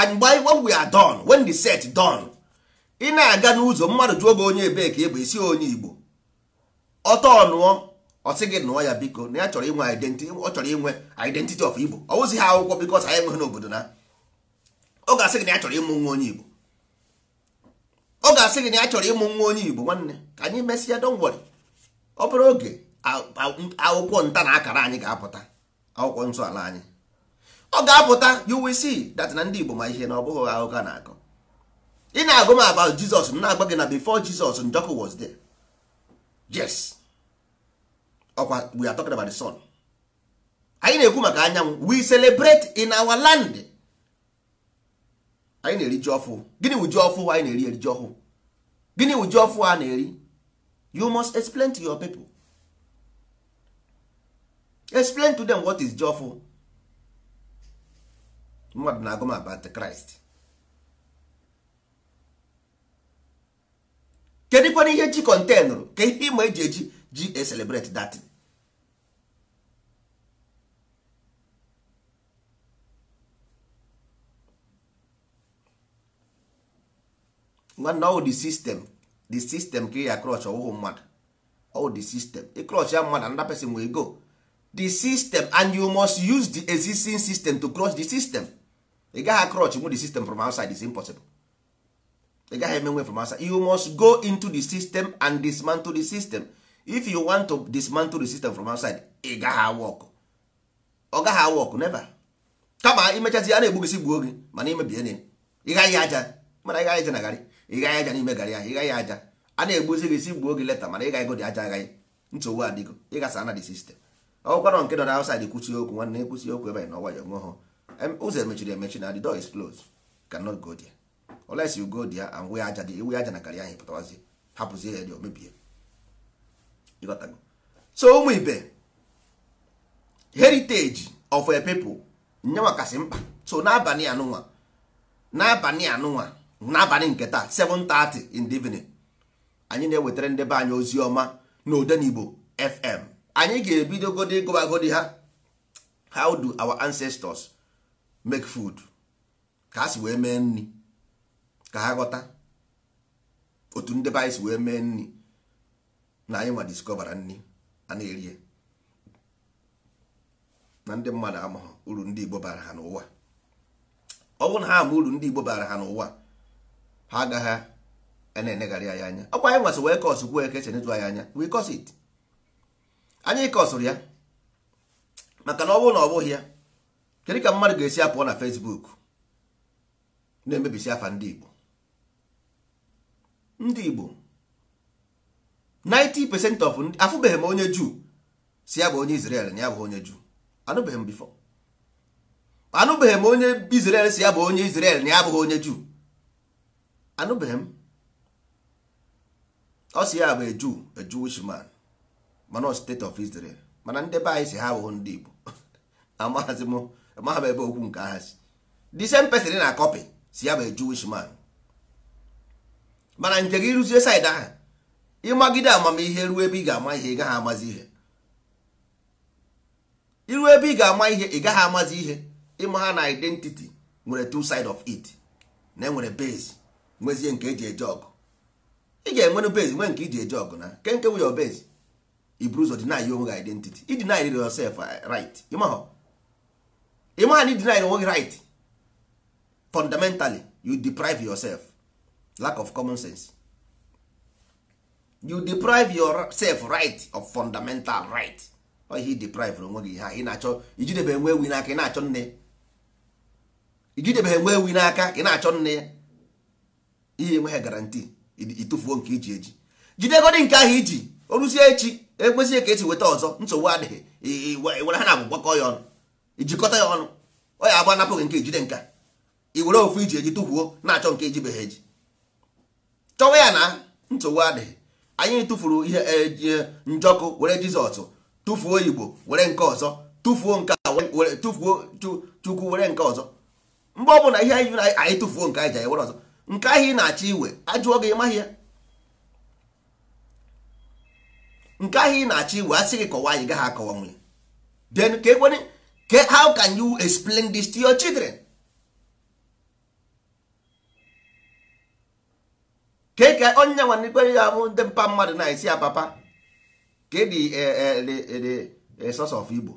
and by when we are done when the set done ị na-aga n'ụzọ mmadụ jụọ gị onye ebe ka ịbụ esi onye igbo ọtọ nụọ ọsị gị nụọ ya biko na ya chọrọ inwe identity ọ chọrọ inwe identity of igbo ọ wụzi ha akwụkwọ bikos anyị enweghị n'obodo na ọ ga-asị gị na ya chọrọ ịmụ nwa onye igbo ọ ga-asị gị na ya chọrọ ịmụ nwa onye igbo nwanne ka anyị mesịa don't worry ọ bụrụ oge akwụkwọ nta na akara anyị ga-apụta akwụkwọ nsọ ala anyị ọ ga-apụta you will see that na ndị Igbo ma ihe na ọ bụghị akụkọ na-akọ ị na-agụ m about Jizọs m na-agba gị na before Jizọs Njọkụ was there yes ọkwa we are talking about the sun anyị na-ekwu maka anyanwụ we celebrate in our land anyị na-eri ji ọfụ gịnị wụ ji ọfụ anyị na-eri eri ji ọfụ? gịnị wụ ji ọfụ a na-eri you must explain to your people explain to them what is jofu mmadụ na-agụ m about Christ kedụkwana ihe ji kọntenụrụ ka ihe ịma eji eji ji e celebrate that nwanne ọ wụ the system the system ka ị ya klọch ọwụhụ mmadụ all the system ịklọch ya mmadụ another person will go the system and you must use the existing system to clutch the system ị gaghị klọch nwe the system from outside is impossible ị gaghị eme nwe from outside you must go into the system and dismantle the system if you want to dismantle the system from outside ị gaghị awọkụ ọ gaghị awọkụ never kama imechazi ya na-egbugosi gbuo gị mana imebie ị gaghị aja mana ị gaghị aja na garị ị gaghị aja n'ime garị ahụ ị gaghị aja a na-egbuzi gị si gbuo gị leta mana ị gaghị godi aja agaghị nsogbu adịgo ịgasa na dị sistem ọgwụkwana nke nọ na outside kwụsị okwu nwanne kwụsị okwu ebe na ọwayọ nwụọ ha ụzọ emechiri emechi na the door is closed cannot go there unless you go there and wee aja dị iwe aja na garị ahụ pụtawazi hapụzie ya dị omebie so ụmụ ibe heritage of a people nyenwa kasị mkpa so n'abalị anụnwa n'abalị anụnwa n'abalị nke taa 7:30 in the evening anyị na-ewetara ndị be anyị ozi ọma igbo FM anyị ga-ebidogodi ebido godi ha how do our ancestors make food ka ha si wee mee nri ka ha ghọta otu ndị be anyị si wee mee nri na anyị ma discovera nri a na-erie na ndị mmadụ amaghị uru ndị Igbo bara ha n'ụwa ọ bụrụ na ha ama uru ndị Igbo bara ha n'ụwa ha agaghị na-enegharị anya ọkwa anyị nwasị wee kọsụ gwuo eke chenetu anyị anya we anyị ya maka na ọ bụrụ na ọ bụghị ya kedu ka mmadụ ga-esi apụọ na Facebook na-emebisi afa ndị Igbo ndị Igbo 90% of afụbeghị m onye Juu si ya bụ onye na si ya bụ onye na ya abụghị onye Juu anụbeghị m ọ si ya bụ eju eju wishman mana state of Israel mana ndị be anyị si ha bụ ndị Igbo amaghịzi m amaghị m ebe okwu nke aha si the same person na akọpị si ya bụ eju wishman mana nke gị rụzie said ahụ ịmagide amamihe ruo ebe ị ga-ama ihe ị gaghị amazi ihe iru ebe ị ga-ama ihe ị gaghị amazi ihe ịma ha na identity nwere two side of it na enwere base nwezie nke eji eje ọgụ ị ga-enwere base nwee nke iji eje ọgụ na ke nke wuyo base iburu ụzọ deny onwe gị identity ideny yourself uh, right ịmaha na ideny onwe gị right fundamentally you deprive yourself lack of common sense you deprive yourself right of fundamental right ihe deprive onwe gị ha ị na-achọ ijidebe enwe ewi n'aka ị na-achọ nne ijidebe ewi n'aka ị na-achọ nne ya ihe enweghị garanti ịtụfuo nke iji eji jidegodi nke ahụ iji oruzie echi ekwesịghị ka esi weta ọzọ nsogbu adịghị were ha na abụ ya ọnụ ijikọta ya ọnụ ọ ya agba napụghị nke ijide nka i were ofu iji eji tụfuo na-achọ nke eji beghị eji chọwa ya na nsogbu adịghị anyị tụfuru ihe eji e, njọkụ were jizọs tụfuo igbo were nke ọzọ tụfuo nke tụfuo chukwu were nke ọzọ mgbe ọ bụla ihe anyị anyị tụfuo nke anyị ji ewere ọzọ nke ahụ ị na-achọ iwe ajụọ gị ịmaghị ya nke ahụ ị na-achọ iwe asị gị kọwa anyị gaghị akọwa nwe then ka ekwene how can you explain this to your children ke ka e onye nwanne ikpere ya bụ ndị mpa mmadụ na-esi ya papa ka e dị e, source of Igbo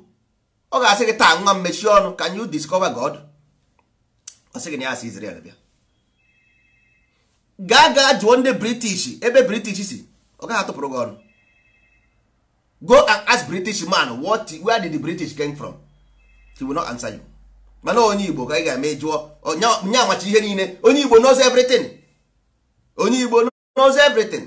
ọ ga-asị gị taa nwa mmechi ọnụ can you discover God ọ sị gị na ya si Israel bịa gaa gaa jụọ ndị british ebe british si ọ gaghị atụpụrụ gị ọrụ go and ask british man what where did the british came from he will not answer you mana onye igbo ka ị ga-eme jụọ onye amachi ihe niile onye igbo knows everything onye igbo knows everything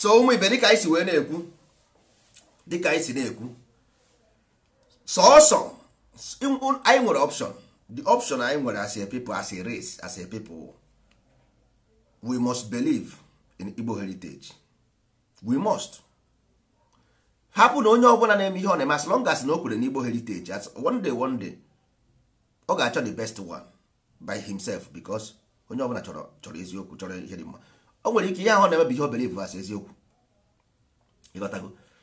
so ụmụ ibe dịka anyị si wee na-ekwu dịka anyị si na-ekwu sọọsọ anyị nwere option the option anyị nwere as a people as a race as a people we must believe in Igbo heritage we must hapụ na onye ọbụla na-eme ihe ọ na-eme as long as na o kwere na Igbo heritage as one day one day ọ ga-achọ the best one by himself because onye ọbụla chọrọ chọrọ eziokwu chọrọ ihe dị mma o nwere ike ihe ahụ na-emebighị obere ivas eziokwu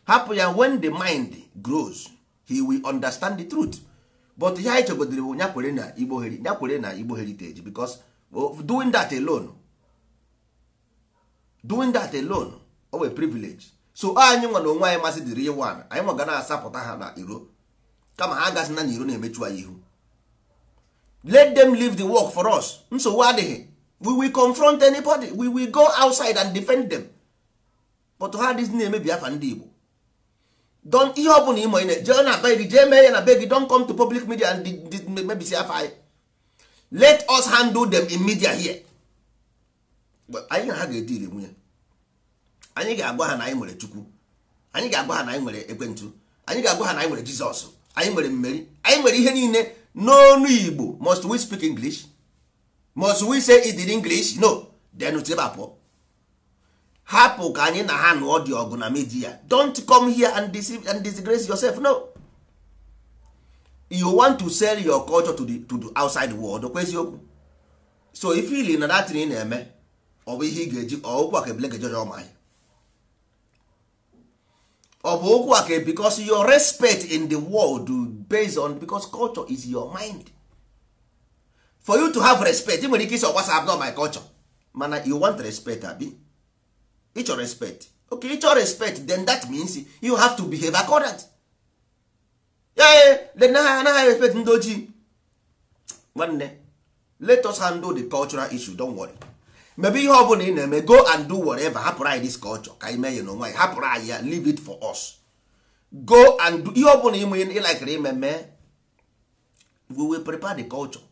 hapụ ya when the mind grows he will understand the truth but ihe anyị chegodere bụ nyakwere na igbo nyakwere na igbo heritage because doing that alone doing that alone o wee privilege so anyị nwa na onwe anyị masị dịrị iwu ana anyị nwa ga na-asapụta ha na iro kama ha agazina na iro na-emechu anyị ihu let them leave the work for us nsogbu adịghị we will confront anybody we will go outside and defend them but ha dịz na-emebi afa ndị Igbo don ihe ọ bụla ịmọ jee na be gị jee mee ya na be gị don come to public media and mebisi afa anyị let us handle them in media here anyị na ha ga-ediri nwunye anyị ga-agwa ha na anyị nwere Chukwu anyị ga-agwa ha na anyị nwere Ekwentu. anyị ga-agwa ha na anyị nwere Jizọs anyị nwere mmeri anyị nwere ihe niile n'onu Igbo must we speak English must we say it in english no then tibapụ hapụ ka anyị na ha nụọ dị ọgụ na media don't come here and deceive and disgrace yourself no you want to sell your culture to the, to the outside world okwu eziokwu so ifili na datin ị na-eme ọ bụ ihe ị ga-eji okwu aka ebile ga ọma anyị. ọ bụ okwu aka because your respect in the world based on because culture is your mind for you to have respect ị nwere ike isi ọgbasa abụọ my culture mana you want respect abi ịchọ respect okay ịchọ respect then that means you have to behave accordant ee anaghị respect ndị ojii nwanne let us handle the cultural issue don't worry maybe ihe ọbụla ị na-eme go and do whatever hapụrụ anyị this culture ka anyị mee ya n'onwe anyị hapụrụ anyị ya leave it for us go and do ihe ọbụla ime ịlakịrị ime mee we will prepare the culture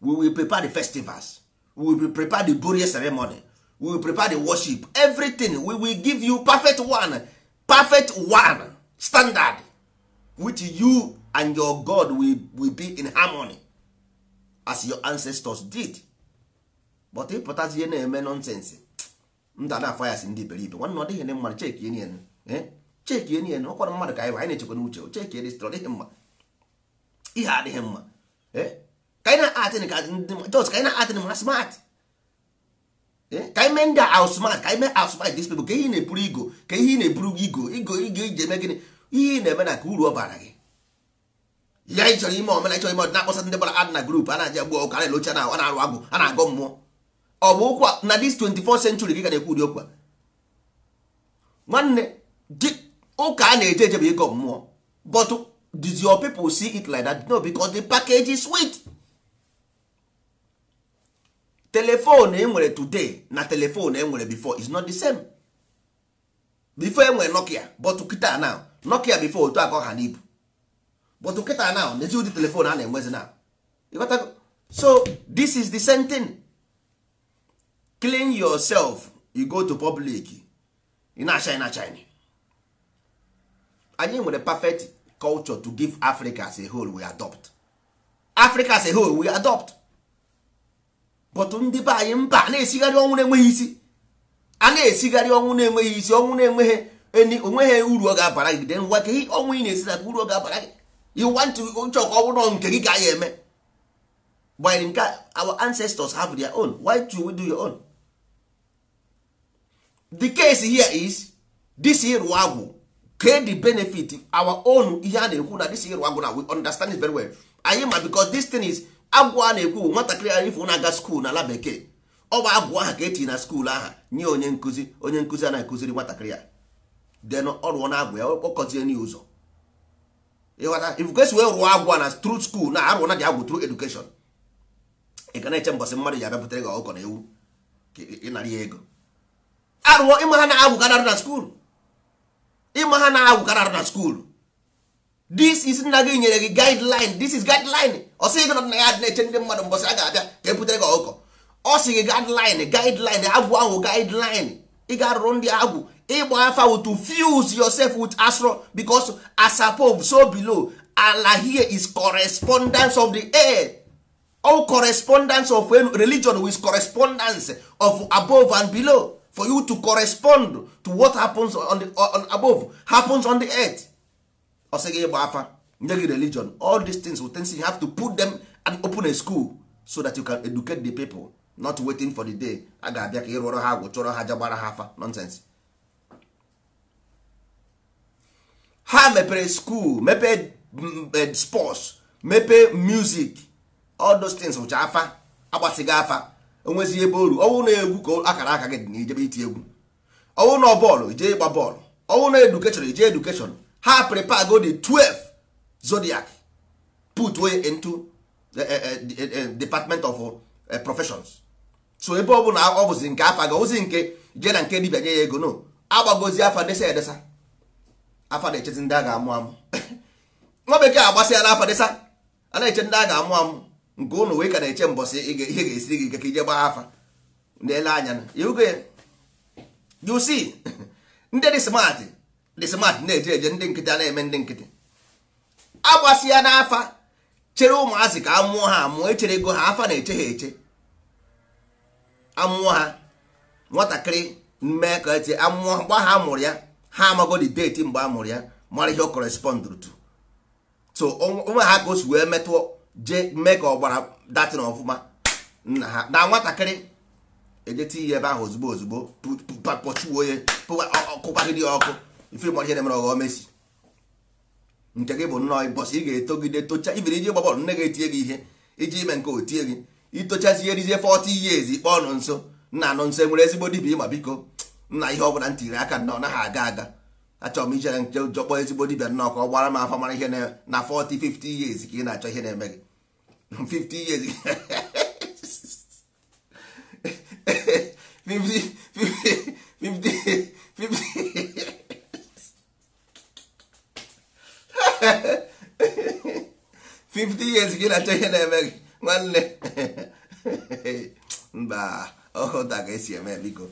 we will prepare the festivals we will prepare the burial ceremony we will prepare the worship everything we will give you perfect one perfect one standard which you and your god will, will be in harmony as your ancestors did but ịpụtazie na-eme nonsense ndana na afayas ndị iberibe nwanne ọ dịghị na mmadụ cheki enien cheki enien ọkwara mmadụ ka anyị anyị na-echekwa n'uche cheki dịstr ọdịghị mma ihe adịghị mma eh ka anyị na-atịn ka just ka anyị na-atịn ma smart ka ime dis ihe na-eburu igo ka ihe na-eburu igo igo igo iji eme gịnị ihe na-eme na ka uru ọ bara gị ya anyị ime omena chọrọ ime ọdịna akpọsa ndị bara adị na grup a na-aja gbuo ụka na-elocha na na arụ agụ a na-agọ mmụọ ọ bụ ụkwa na dis 24 century gị ga na-ekwu ụdị okwu nwanne ụka a na-eje eje bụ mmụọ telefon enwere today na telefon enwere before is not the same before enwere nokia but kịta now nokia before otu aka ha n'ibu but kịta now n'ezi ụdị telefon a na-enwezi na so this is the same thing clean yourself you go to public ina na-acha na china anyị nwere perfect culture to give africa as a whole we adopt africa as a whole we adopt bọtụ ndị be anyị mba a na-esigharị ọnwụ na-enweghị isi a na-esigharị ọnwụ na-enweghị isi ọnwụ na-enweghị eni onweghị uru ọ ga-abara gị dengwa ka ọnwụ ị na-esidata esi uru ọ ga-abara gị iwantụ uche ọkụ ọbụrụ nke gị ka anyị eme gbanyere nke our ancestors have their own why do we do your own the case here is this ịrụ agwụ ke the benefit our own ihe a na-ekwu na this ịrụ agwụ na we understand it very well anyị ma because this thing is agwụ a na-ekwu bụ nwatakịrị anyị ifo na-aga skuul n'ala bekee ọ bụ agwụ aha ka etinye na skuul aha nye onye nkụzi onye nkụzi a na-akụziri nwatakịrị a den ọ rụọ na agwụ ya kpọkọzie n'ihe ụzọ ifukesi wee rụọ agwụ na tru skuul na arụọ na dị agwụ tru edukeshọn ị ga na-eche mbọsị mmadụ ya bịapụtara gị ọkọ na ewu ịnara ya ego arụọ ịma ha na agwụ ka na-arụ na skuul ịma ha na agwụ ka arụ na skuulu this is nna gị nyere gị guideline this is guideline ọ gị nọ na ya na-eche ndị mmadụ mbọsị a ga-abịa ka ebutere gị ọkụkọ ọ sị gị guideline guideline agwụ ahụ guideline ị ga-arụrụ ndị agwụ ịgba afa to fuse yourself with astro because asapob so below ala here is correspondence of the air all correspondence of religion with correspondence of above and below for you to correspond to what happens on the on above happens on the earth ọsị gị ịgba afa nye gị religion all these things will things you have to put them and open a school so that you can educate the people not waiting for the day a ga-abịa ka ị rụọrọ ha agwụ chọrọ ha jagbara ha afa nonsense ha mepere school mepee mm, mm, eh, sports mepee music all those things which afa agbasịghị afa onwezi ebe oru ọwụ na egwu ka akara aka gị dị na ijebe iti egwu ọwụ na bọọlụ jee ịgba bọọlụ ọwụ na edukeshọn ije edukeshọn ha prepare go the 12 zodiac put way into eh, eh, eh, department of professions so ebe ọ bụ na ọ bụzi nke afa ga ozi nke jee na nke dibia nye ya ego no agbagozi afa desa edesa afa na-echezi ndị a ga-amụ amụ nwa bekee agbasịala afa desa a na-eche ndị a ga-amụ amụ nke ụnụ wee ka na-eche mbọsị ihe ga-esiri gị ike ka ije gbaa afa na ele anya na you see ndị dị smartị Eh, ndị smart na-eje eje ndị nkịtị a na-eme ndị nkịtị agbasi ya n'afa chere ụmụazị ka amụọ ha amụọ echere ego ha afa na-eche ha eche amụọ ha nwatakịrị mmee ka eti amụọ mgbe ha mụrụ ya ha amagodi deti mgbe a mụrụ ya mara ihe ọ kọrespọndụrụ tu so onwe ha ka o si wee metụọ jee mee ka ọgbara datin ọfụma nna ha na nwatakịrị ejeti ihe ebe ahụ ozugbo ozugbo pọchuo onye kụkwagịrị ya ọkụ ifere gbara ihe na-emere ọghọ mesi nke gị bụ nnọọ ịbọsị ị ga-etogide tocha ibiri iji gba nne gị etinye gị ihe iji ime nke otie gị itochazie rizie 40 years ikpe ọnụ nso nna anụ nso e nwere ezigbo dibia ịma biko nna ihe ọbụla ntiri aka nnọọ naghị aga aga achọrọ m ijere nche ụjọ ezigbo dibia nnọọ ka ọ gbara m afọ mara ihe na 40 50 years ka ị na-achọ ihe na-eme gị 50 years 50 50 50 50 50 years gị na-achọ ihe na-eme gị nwanne mba ọkụta ka esi eme biko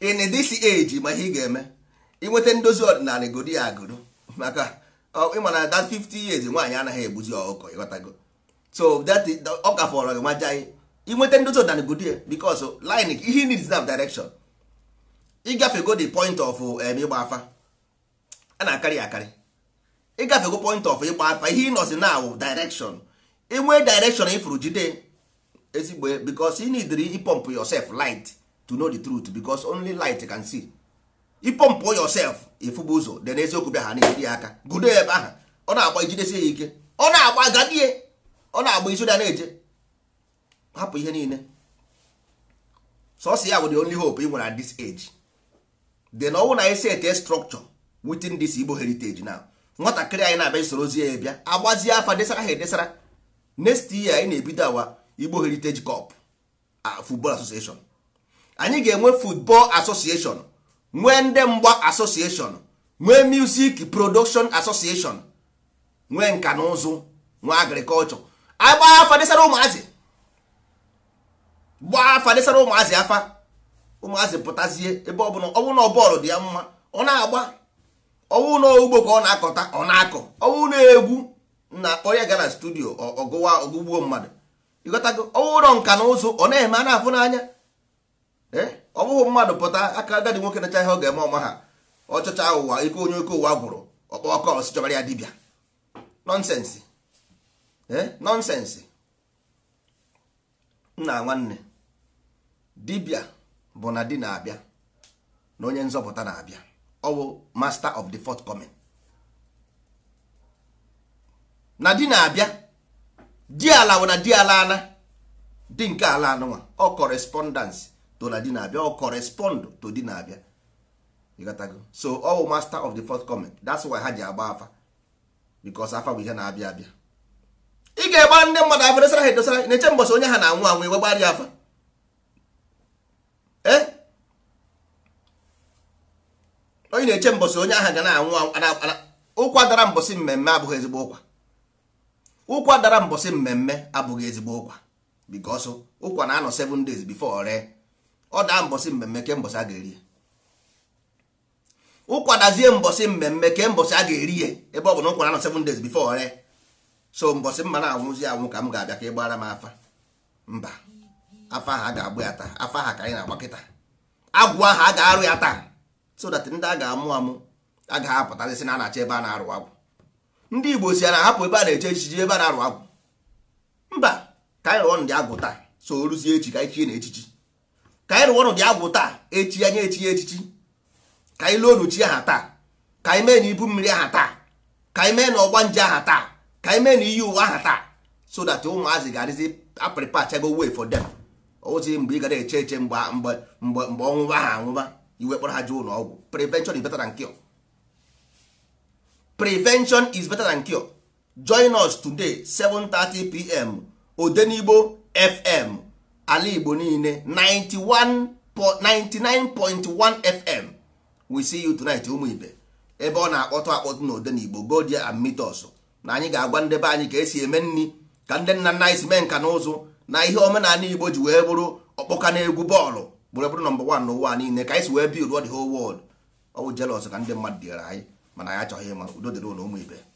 in this age ma ị ga-eme inweta ndozi ọdịnala godo ya agodo maka ịma oh, na that 50 years nwaanyị anaghị egbuzi ọkụkọ oh, ịghọtago so that ọ ka fọrọ gị maja inweta ndozi ọdịnala because oh, line ihe needs that direction ịgafego the point of ịgba afa a na-akarị akarị ịgafego point of ịkpa afa ihe ị nọzi na awụ direction enwee direction ifuru jide ezigbo because you need ịpọmpụ yourself light to know the truth because only light can see ịpọmpụ yourself ịfụba ụzọ dị n'eziokwu bịa ha na-ejiri aka gudo ebe ahụ ọ na-agba ijidesi ya ike ọ na-agba gadie ọ na-agba isi ụda na-eje hapụ ihe niile sọsọ ya bụ the only hope ị nwere at this age then ọnwụ na esi ete structure within this Igbo heritage now nwatakịrị anyị na-abịa isoro ozi ya bịa agbazie afa desara ha edesara next year anyị na-ebido awa Igbo Heritage Cup football association anyị ga-enwe football association nwee ndị mgba association nwee music production association nwee nka na ụzụ nwee agriculture agba afa desara ụmụazị gbaa afa desara ụmụazị afa ụmụazị pụtazie ebe ọ bụla ọ bọọlụ dị ya mma ọ na-agba ọwụ na ka ọ na-akọta ọ na-akọ ọwụ na-egwu na akpọ ya gara studio ọgụwa ọgụgbuo mmadụ ịghọtago ọwụ na nka na ụzụ ọ na-eme a na-afụ n'anya ọ bụghị mmadụ pụta aka agadi nwoke nacha ihe ọ ga-eme ọma ha ọchọcha ụwa ike onye oke ụwa gwụrụ ọkpa ọkọ ọsị chọbara ya dibịa nọnsensị nọnsensị nna nwanne dibịa bụ na di na-abịa na onye nzọpụta na-abịa ọwụ master of the fourth forthcoming na di na-abịa di ala na di ala ana di nke ala anụnwa ọ correspondence to na di na-abịa ọ correspond to di na-abịa ịghọtago so ọwụ master of the fourth forthcoming that's why ha ji agba afa because afa bụ ihe na-abịa abịa ị ga-egba ndị mmadụ afọ edosara ha edosara na-eche mbọsị onye ha na-anwụ anwụ iwegbara ya afa ee eh? onye na-eche mbọsị onye ahụ ga na-anwụ ụkwa dara mbọsị mmemme abụghị ezigbo ụkwa ụkwa dara mbọsị mmemme abụghị ezigbo ụkwa because ụkwa na-anọ seven days before ree ọ daa mbọsị mmemme ke mbọsị a ga-eri ụkwa dazie mbọsị mmemme ke mbọsị a ga-eri ya ebe ọ bụ na ụkwa na-anọ seven days bifo ree so mbọsị mma na-anwụzi anwụ ka m ga-abịa ka ị m afa mba afa ahụ a ga-agbụ ya taa afa ahụ ka anyị na-agba kịta agwụ ahụ a ga-arụ ya taa so that ndị a ga-amụ amụ a ga-apụtasị na a na-achọ ebe a na-arụ agwụ ndị igbo si a na-ahapụ ebe a na-eche echichi ebe a na-arụ agwụ mba ka anyị rụọ ndị agwụ taa so ruzie echi ka anyị na echichi ka anyị rụọ ndị agwụ taa echi anya echi echichi ka anyị lụọ onuchi aha taa ka anyị mee na ibu mmiri aha taa ka anyị mee na ọgba nje aha taa ka anyị mee na iyi ụwa aha taa so that ụmụazị ga-adịzi aprịpa chago way for them ozi mgbe ị gara eche eche mgbe ọnwụba ha anwụba iwe kpọrọ ha ji ụlọ ọgwụ prevention is better than cure prevention is better than cure join us today 7:30 pm odenigbo fm ala igbo niile 99.1 fm we see you tonight ụmụ ibe ebe ọ na-akpọtụ akpọtụ na odenigbo go and meet us na anyị ga-agwa ndebe anyị ka esi eme nri ka ndị nna nna anyị si mee nka na na ihe omenala igbo ji wee bụrụ ọkpọka na egwu bọọlụ were bụrụ nọmba wan n'ụwa niile ka anyị si wee bild the whole world ka ndị mmadụ dịara anyị mana anyị achọghị ịma udo dịrị ụlọ ụmụ ibe